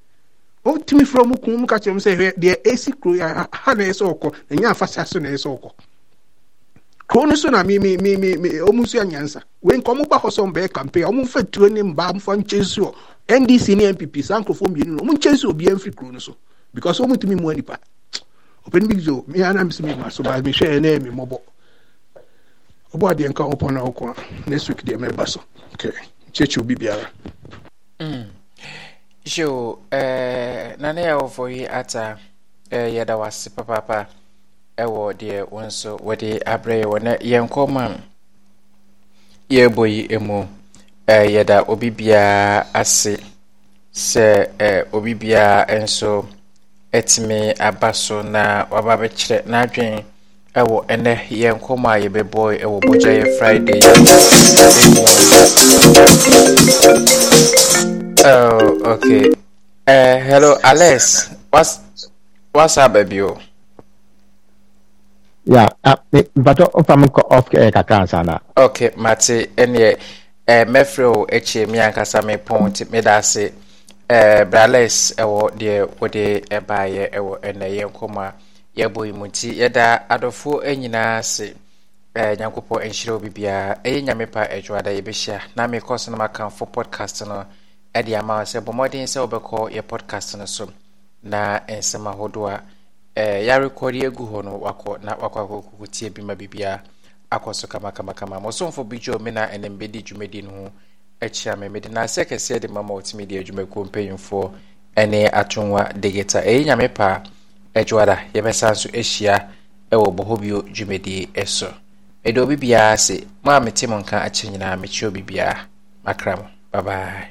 o frɛ mu kun mu ka kyerɛ mu sɛ hwɛ deɛ ɛsi kuro yi ha na ɛyɛ ọkọ ɔkɔ na so na ɛyɛ sɛ ɔkɔ kuro no so na mi mi mi mi wei nka mba mfa nkyɛn ndc ne npp saa nkurɔfoɔ mmienu no kuro no so because tumi nipa ɔpɛni bi mi anam si mi ma so ba mi hwɛ mi ɔbɔ adeɛ na ɔkɔ so okay biara. Joe, eh, nane a wɔfɔ yi ata eh, yɛda wase papaapa ɛwɔ deɛ wo nso wɔde de yɛ wɔ na yɛnkɔ ma yɛbɔ yi mu eh, yɛda obi biara ase sɛ eh, obi biara nso ɛtumi aba so na waba bɛkyerɛ n'adwen ɛwɔ ɛnɛ yɛnkɔmmɔ a yɛbɛbɔ ɛwɔ bɔgya yɛ friday Oh, okay. Uh, hello, Alex. What's what's up, baby? Yeah, uh, but if I'm off air, eh, kakana. Okay, Mati, any eh mefro echi mi ankasa me point me da se eh brales ewo de wo de eba eh, ye ewo ene ye nkoma ye boy muti ye da adofo enyina se eh nyankopɔ nhyira obi bia eye nyame pa adwoada ye behia na me kɔso na makamfo podcast no ɛde ama wo sɛ bɔ mmɔden sɛ wobɛkɔ yɛ podcast no so na nsɛm ahodoɔ a eh, yɛarekɔde agu hɔ no wakɔ na wakɔ akɔkɔtie bi ma biribiaa akɔ so kamakamakama mosomfo bi gyo me na ɛnam bɛdi dwumadi no ho akyia me mede naasɛ kɛseɛ de ma ma wɔtumi de adwumakuo mpanyimfoɔ ne atonwa digita ɛyɛ nyame paa adwoada yɛbɛsa so ahyia ɛwɔ bɔhɔ bio dwumadi so mede obi biara ase mo a mete mo nka akyɛ nyinaa mekyerɛ obi biara makra mo babae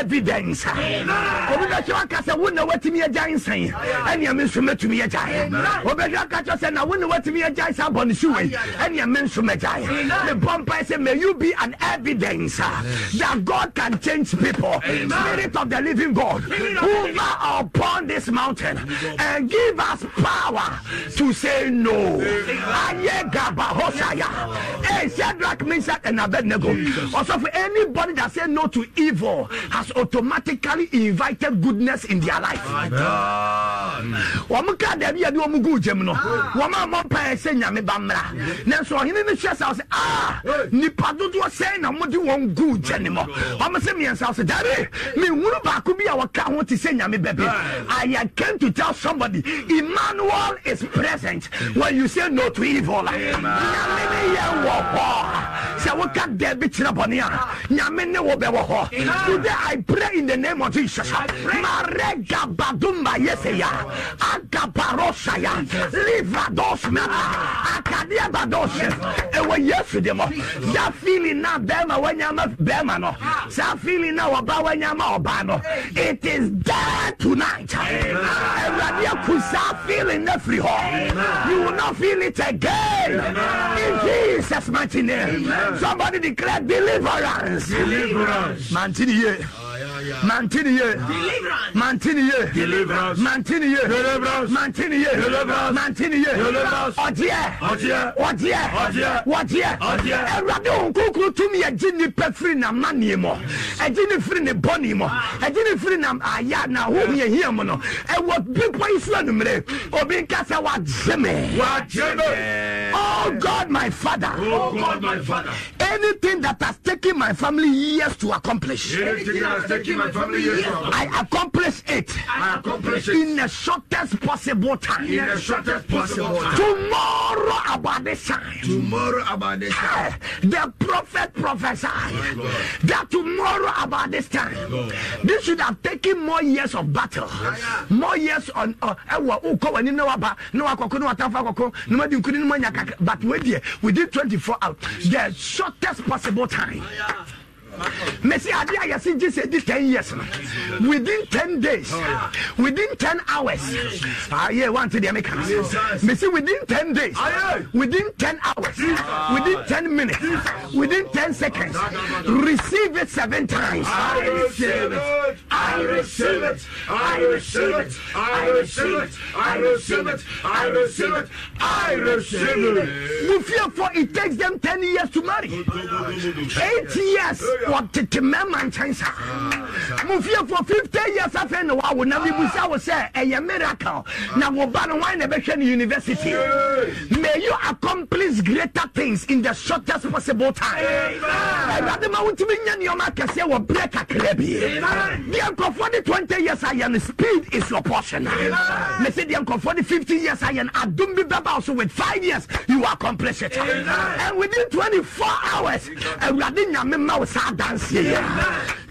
evidence obi bɛ kyerɛ aka sɛ wone watumi agya nsan ɛnea me nso matumi agyae wobɛhwɛ aka kyerɛ sɛ na wone watumi agyae saa bɔne suwei ɛnea me nso magyae mebɔ mpae sɛ may you be an evidence that God can change people. Amen. Spirit of the living God, hover upon this mountain and give us power to say no. Hey, Shadrach, Meshach, and Abednego. Also, for anybody that says no to evil has automatically invited goodness in their life. Hmm. wɔn ka dɛbi yɛ bi wɔn gu gyem no ah. wɔn a wɔn pa ɛsɛ nyame ba mmra nanso ɔhene no hyɛ sa ɔsɛ ah, nipa dodoɔ sɛn ɛdeɛn na mode wɔn guu gyɛ ne mɔ ɔmo sɛ miɛnsa so dabi mehunu baako bi a wɔka ho te sɛ nyame bɛbi i came to tell somebody emmanuel is present when you say no to evil nyame ne yɛ wɔ hɔ sɛ woka dɛ bi kyerɛ bɔne a nyame ne wo bɛwɔ hɔ today i pray in the name of jesus maregabadumba agabarosaya livados mɛta ah. akadeɛ bados ɛwɔ yesu de mɔ that feeling na bɛrima wanyama bɛrima no ah. saa feeling na wɔba wanyama ɔba no it is there tonight awurade aku saa feeling na firi hɔ you will not feel it again in jesus mighty name somebody declare deliverance deliverance mantini yie. mantini ye mantini ye mantini ye mantini ye mantini ye ɔdeɛ ɔdeɛ ɔdeɛ ɛwurade wɔn kukuru tumi ɛgye nipa firi na manie mɔ ɛgye ne firi ne bɔne mɔ ɛgye ne firi na aya na ahohom yɛ hia mu no ɛwɔ bepɔ yi so anumere obi nka sɛ wagye me wagye me oh god my father oh god my father anything that has taken my family years to accomplish anything that has taking my family yes, I accomplish it. I accomplish it in the shortest possible time. In the shortest possible time. Tomorrow about this time. Tomorrow about this time. The prophet prophesied that tomorrow about this time. This should have taken more years of battle. More years on ɛwɔ uh, wokɔ w'anim na waba na wakɔko na watamfo akɔko na madi nkuni no manya kakra but wei deɛ within 24 hours the shortest possible time. Oh, yeah. mesi ade a yɛsi gye sɛ ten years no within ten days oh, within ten hours ayɛ wante deɛ meka no mesi within ten days ah, within ten hours within ten minutes within ten seconds ah, receive it seven times I receive it I receive it I receive it I receive it I receive it I receive it I receive it Mufia for it takes them ten years to marry eight years wɔtete mɛma nkyɛn saa mo fie for fifty years afei na wawo na mibusa wo sɛ ɛyɛ miracle na wo ba no wan na ɛbɛhwɛ no university may you accomplish greater things in the shortest possible time awurade ma wotumi nya nneɔma akɛseɛ wɔ berɛ kakra bi deɛ nkurɔfoɔ de 20 years ayɛ no speed is your portion me se deɛ nkurɔfoɔ de 50 years ayɛ no adom bi bɛba wo so with 5 years you accomplish it and within 24 hours awurade nyame ma wo saa adanseɛ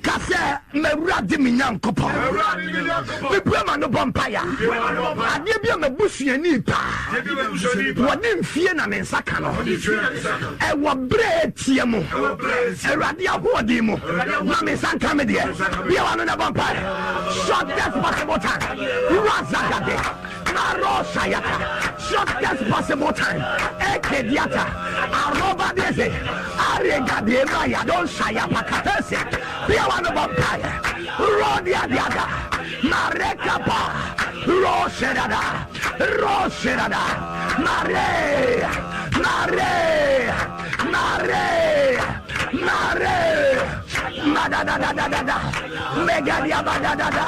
ka sɛ mawura de me nyankopɔn mepua ma no bɔ mpaya adeɛ bi a mabusuani paa wɔde mfie na me nsa ka no ɛwɔ berɛ tie mu awurade ahoɔden mu na me nsa nka me deɛ bia wa no na bɔ mpaɛ shortest possible time razagade na rɔ shortest possible time. Ekediata, Aroba Dese, Arega de Maya, Don Shaya Pakatese, Piawano Vampire, Rodia Diada, Marekapa, Roserada, Roserada, Mare, Mare, Mare, Mare. Madadadadada, Megadia Badadada,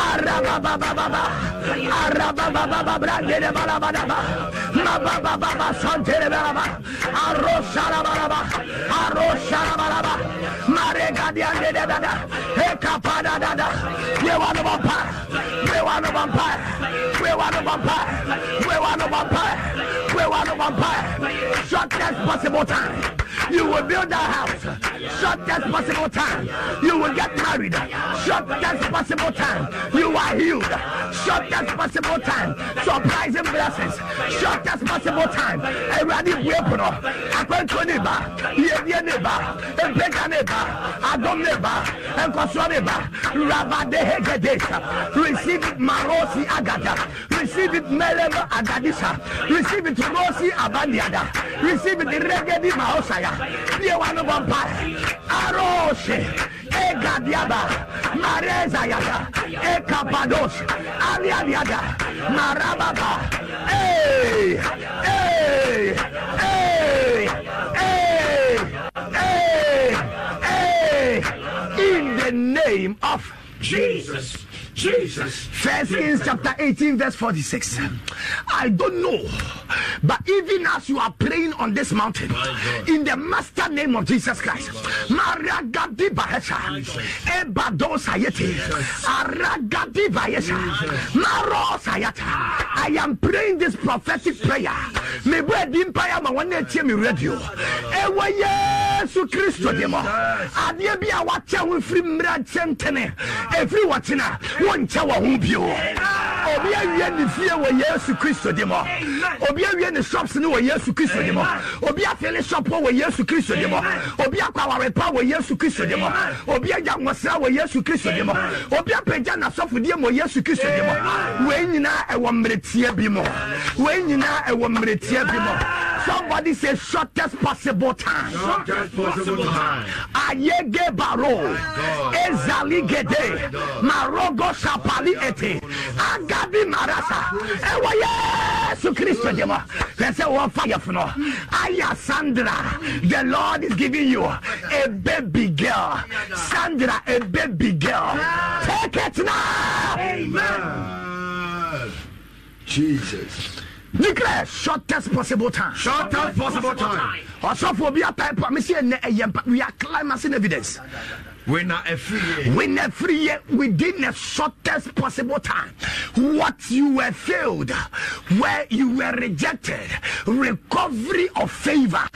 Arababa Baba, Arababa Baba Brandele Balabadaba, Mababa Baba Santele Balaba, Arosara Balaba, Arosara Balaba, Maregadia Dada, Ekapada Dada, Yewanabapa. Wewana vampire. Wewana vampire. Wewana vampire. Wewana vampire. Shortest possible time. You will build a house. Shortest possible time. You will get married. Shortest possible time. You are healed. Shortest possible time. Surprising blessings. Shortest possible time. Everybody weapon. Akwen to neighbor. Yevye neighbor. Empeka neighbor. Adom neighbor. Enkoswa neighbor. Rabade hegedesa. Receive it, Marosi Agada. Receive it, Melema Agadisa. Receive it, Rosi Abandiada. Receive it, Regedi Maosaya. Be one of one Aroshe. Egadiaba. Mareza Yada. Ekapados. Alia Yada. Marababa. Hey! Hey! Hey! Hey! Hey! Hey! In the name of Jesus. Jesus. First Kings chapter 18, verse 46. I don't know, but even as you are praying on this mountain, in the master name of Jesus Christ, Maria Gadi Bahesha, Ebado Sayete, Aragadi Bahesha, Maro Sayata. I am praying this prophetic prayer. May bread empire ma one day me radio. Ewa Yesu Christo demo. Adie bi a wacha wo firi mra chentene. Every watina. wonkyɛ wɔ ho bio obi awie ne fie wɔ yesu kristo di mɔ obi awie ne shops ne wɔ yesu kristo di mɔ obi afele shop wɔ yesu kristo di mɔ obi akɔ awarepa wɔ yesu kristo di mɔ obi agya nwɔsra wɔ yesu kristo di mɔ obi apagya n'asɔfodie wɔ yesu kristo di mɔ wei nyinaa ɛwɔ mmeretie bi mɔ wei nyinaa ɛwɔ mmeretie bi mɔ. Somebody say shortest possible time. Shortest possible time. Ayege baro. Ezali gede. Marogo shapali ete. Agabi marasa. Ewa Yesu Christo dema. Vese wa fire fno. Aya Sandra. The Lord is giving you a baby girl. Sandra, a baby girl. Take it now. Amen. Jesus. nikra shortest possible time. shortest possible time. ọsọfọ obi a type a mi si mpa we are climaxing evidence. a free a free within the shortest possible time. What you were failed, where you were rejected, recovery of favor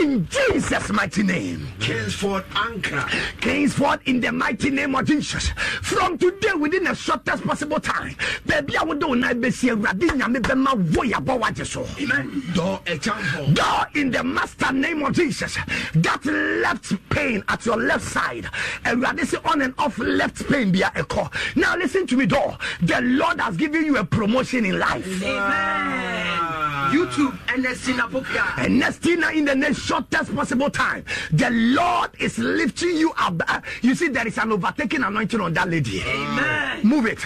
in Jesus' mighty name. Kingsford Anchor. Kingsford in the mighty name of Jesus. From today, within the shortest possible time, baby, I would do not be see Radina Bema Voyabo Wajeso. Amen. Door example. Door in the master name of Jesus. That left pain at your left side. And we are sɛ on and off left pain a call. now listen to me though. the lord has given you a promotion in life Amen. youtube And bokia ernestina in the next shortest possible time the lord is lifting you up uh, you see there is an overtaking anointing on that lady Amen. move it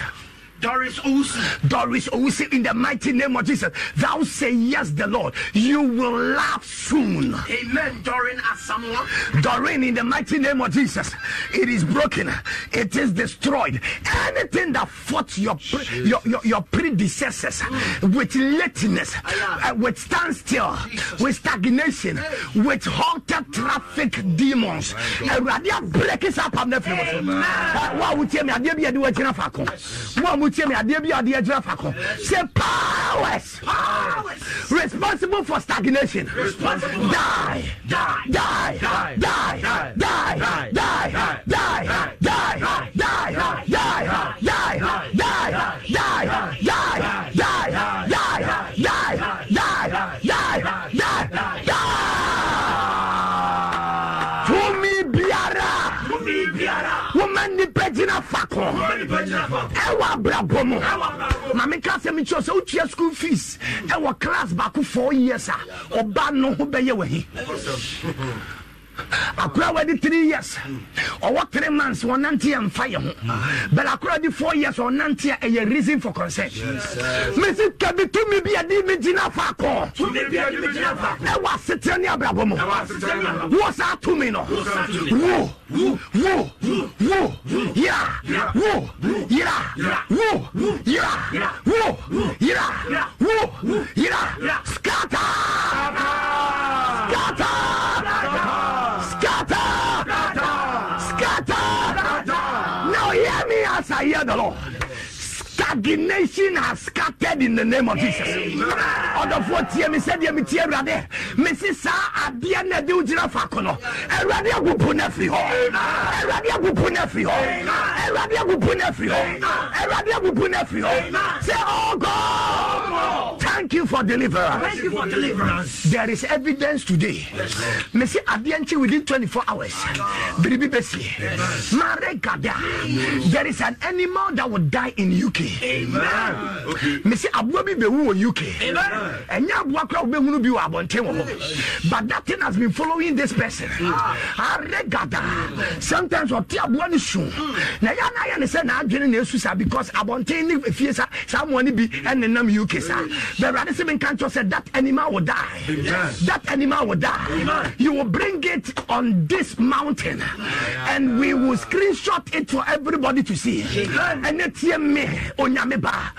Doris Usi. Doris Usi, in the mighty name of Jesus. Thou say yes, the Lord. You will laugh soon. Amen. Doreen Asamoah. Doreen, in the mighty name of Jesus. It is broken. It is destroyed. Anything that fought your pre- your, your, your, predecessors mm. with lateness, uh, with standstill, Jesus. with stagnation, hey. with halted traffic oh, demons. Oh, break us up. I'm not What would you tell me? I did be a do a mu mi adeɛ bi adeɛ gyina fa kɔ powers responsible for stagnation die. die. abrabɔ mu na meka sɛ mekyerɛ sɛ wotua school fees ɛwɔ class baako four years a ɔba no ho bɛyɛ wahi akora wadi three years ɔwɔ three months ɔnante yɛ nfa yɛ ho but akora di four years ɔnante yɛ ɛyɛ reason for concern mesi kabi tumi bi adi mi gyina faako ɛwɔ asetere ne abrabɔ mu wɔ saa tumi no wo wo wo yira wo yira wo yira wo yira wo yira scatter scatter. 的漏 the nation has scattered in the name of jesus ɔdɔfoɔ tie me sɛdeɛ metie awurade mesi saa adeɛ na de wogyina fa ko no awurade agupu no afiri hɔ awurade agupu no afiri hɔ awurade agupu no afiri hɔ awurade agupu no afiri hɔ say oh god thank you for deliverance thank you for deliverance there is evidence today mesi adeɛ nkye within 24 hours biribi bɛsie mare gada there is an animal that will die in uk mesɛ aboa bi bɛwu wɔ uk ɛnyɛ aboa kora wobɛhunu bi wɔ abɔnten wɔ hɔ but that thing has been following this person mm. aregada sometimes ɔte aboa no su mm. na yɛ na ayɛ ne sɛ naadwene na ɛsu saa because abɔnten ne fie sa saa mmoa no bi ɛnenam uk saa bɛwurade sɛ menka nkyɛ sɛ that animal will die that animal will die you will bring it on this mountain and we will screenshot it for everybody to see ɛne tie me onya nyame baa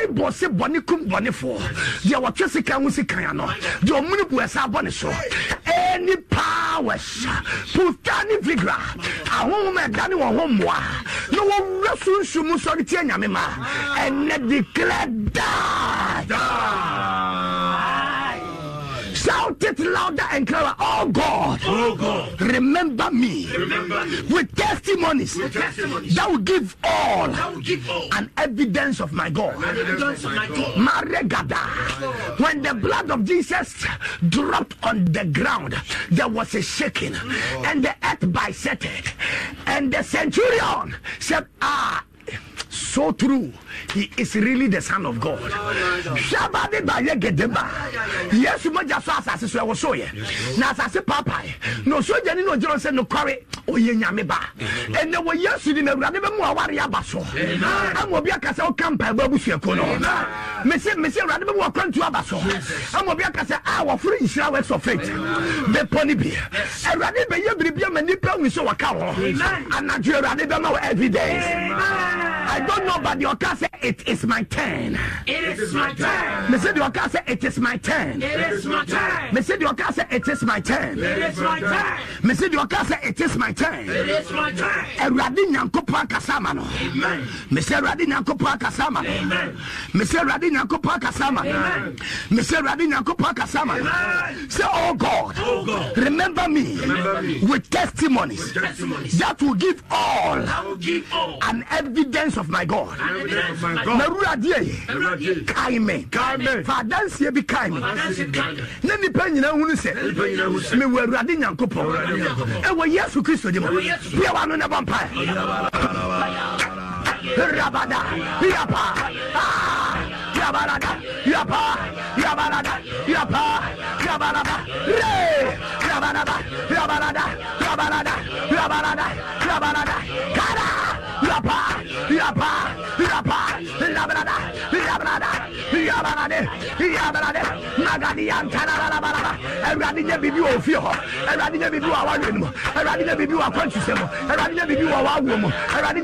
bible se bɔne kum bɔnefoɔ deɛ wɔtwe sika ho sikan ano deɛ ɔmene bu ɛsa bɔne so any powers puta ne vigra ahohom ɛdane wɔ ho mmoa na wɔwura sunsum sɔre tie nyame ma ɛnɛ declare da shout it louder and cry, Oh God, oh God remember, me remember me with testimonies, with testimonies. That, will give all that will give all an evidence of my God. my God. When the blood of Jesus dropped on the ground, there was a shaking, and the earth bisected, and the centurion said, Ah. so true he is really the son of god hwɛba de ba yɛ gedeba yesu mogya so asase so ɛwɔ so yɛ na asase paapae na osogyani na ogyina sɛ nokware ɔyɛ nyame ba ɛnɛ wɔ yesu di na awurade bɛmu aware aba so ama obi aka sɛ woka mpaebɔ abusuakuo no mese mese awurade bɛmu wakwantu aba so ama obi aka a wɔforo nhyira wɔ sɔ faith bepɔ no bi awurade bɛyɛ biribia ma nnipa hu sɛ wɔka I don't know, but the Oka said, It is my turn. It is my turn. Me said, The Oka said, It is my turn. It is my turn. Me said, The Oka said, It is my turn. It is my turn. Me said, The Oka said, It is my turn. It is my turn. Eradi Nyankopon Kasama no. Amen. Me said, Eradi Nyankopon Kasama. Amen. Me said, Eradi Nyankopon Kasama. Amen. Me said, Eradi Nyankopon Kasama. Amen. Say, Oh God. Oh God. Remember me. Remember me. With testimonies. With testimonies. That will give all. That will give all. An evidence of my God. Narura die. Kaime. Fadansie bi kaime. Ne nipa nyina hunu sɛ. Me wɔ Awurade Nyankopɔn. Ɛwɔ Yesu Kristo de mu. Bia wa no na bɔ mpae. Rabada. Biapa. Ah. Yabarada, Yapa, Yabarada, Yapa, Yabarada, Re, Yabarada, Yabarada, Yabarada, Yabarada, Yabarada, Kada, Yapa, Yapa, Yapa, Labrada, Labrada, Yabarade, Yabarade, Magadian, Tanarabarada, and Radija Bibu of Fio, and Radija Bibu, our women, and Radija Bibu, our conscious, and Radija Bibu, our woman, and Radija.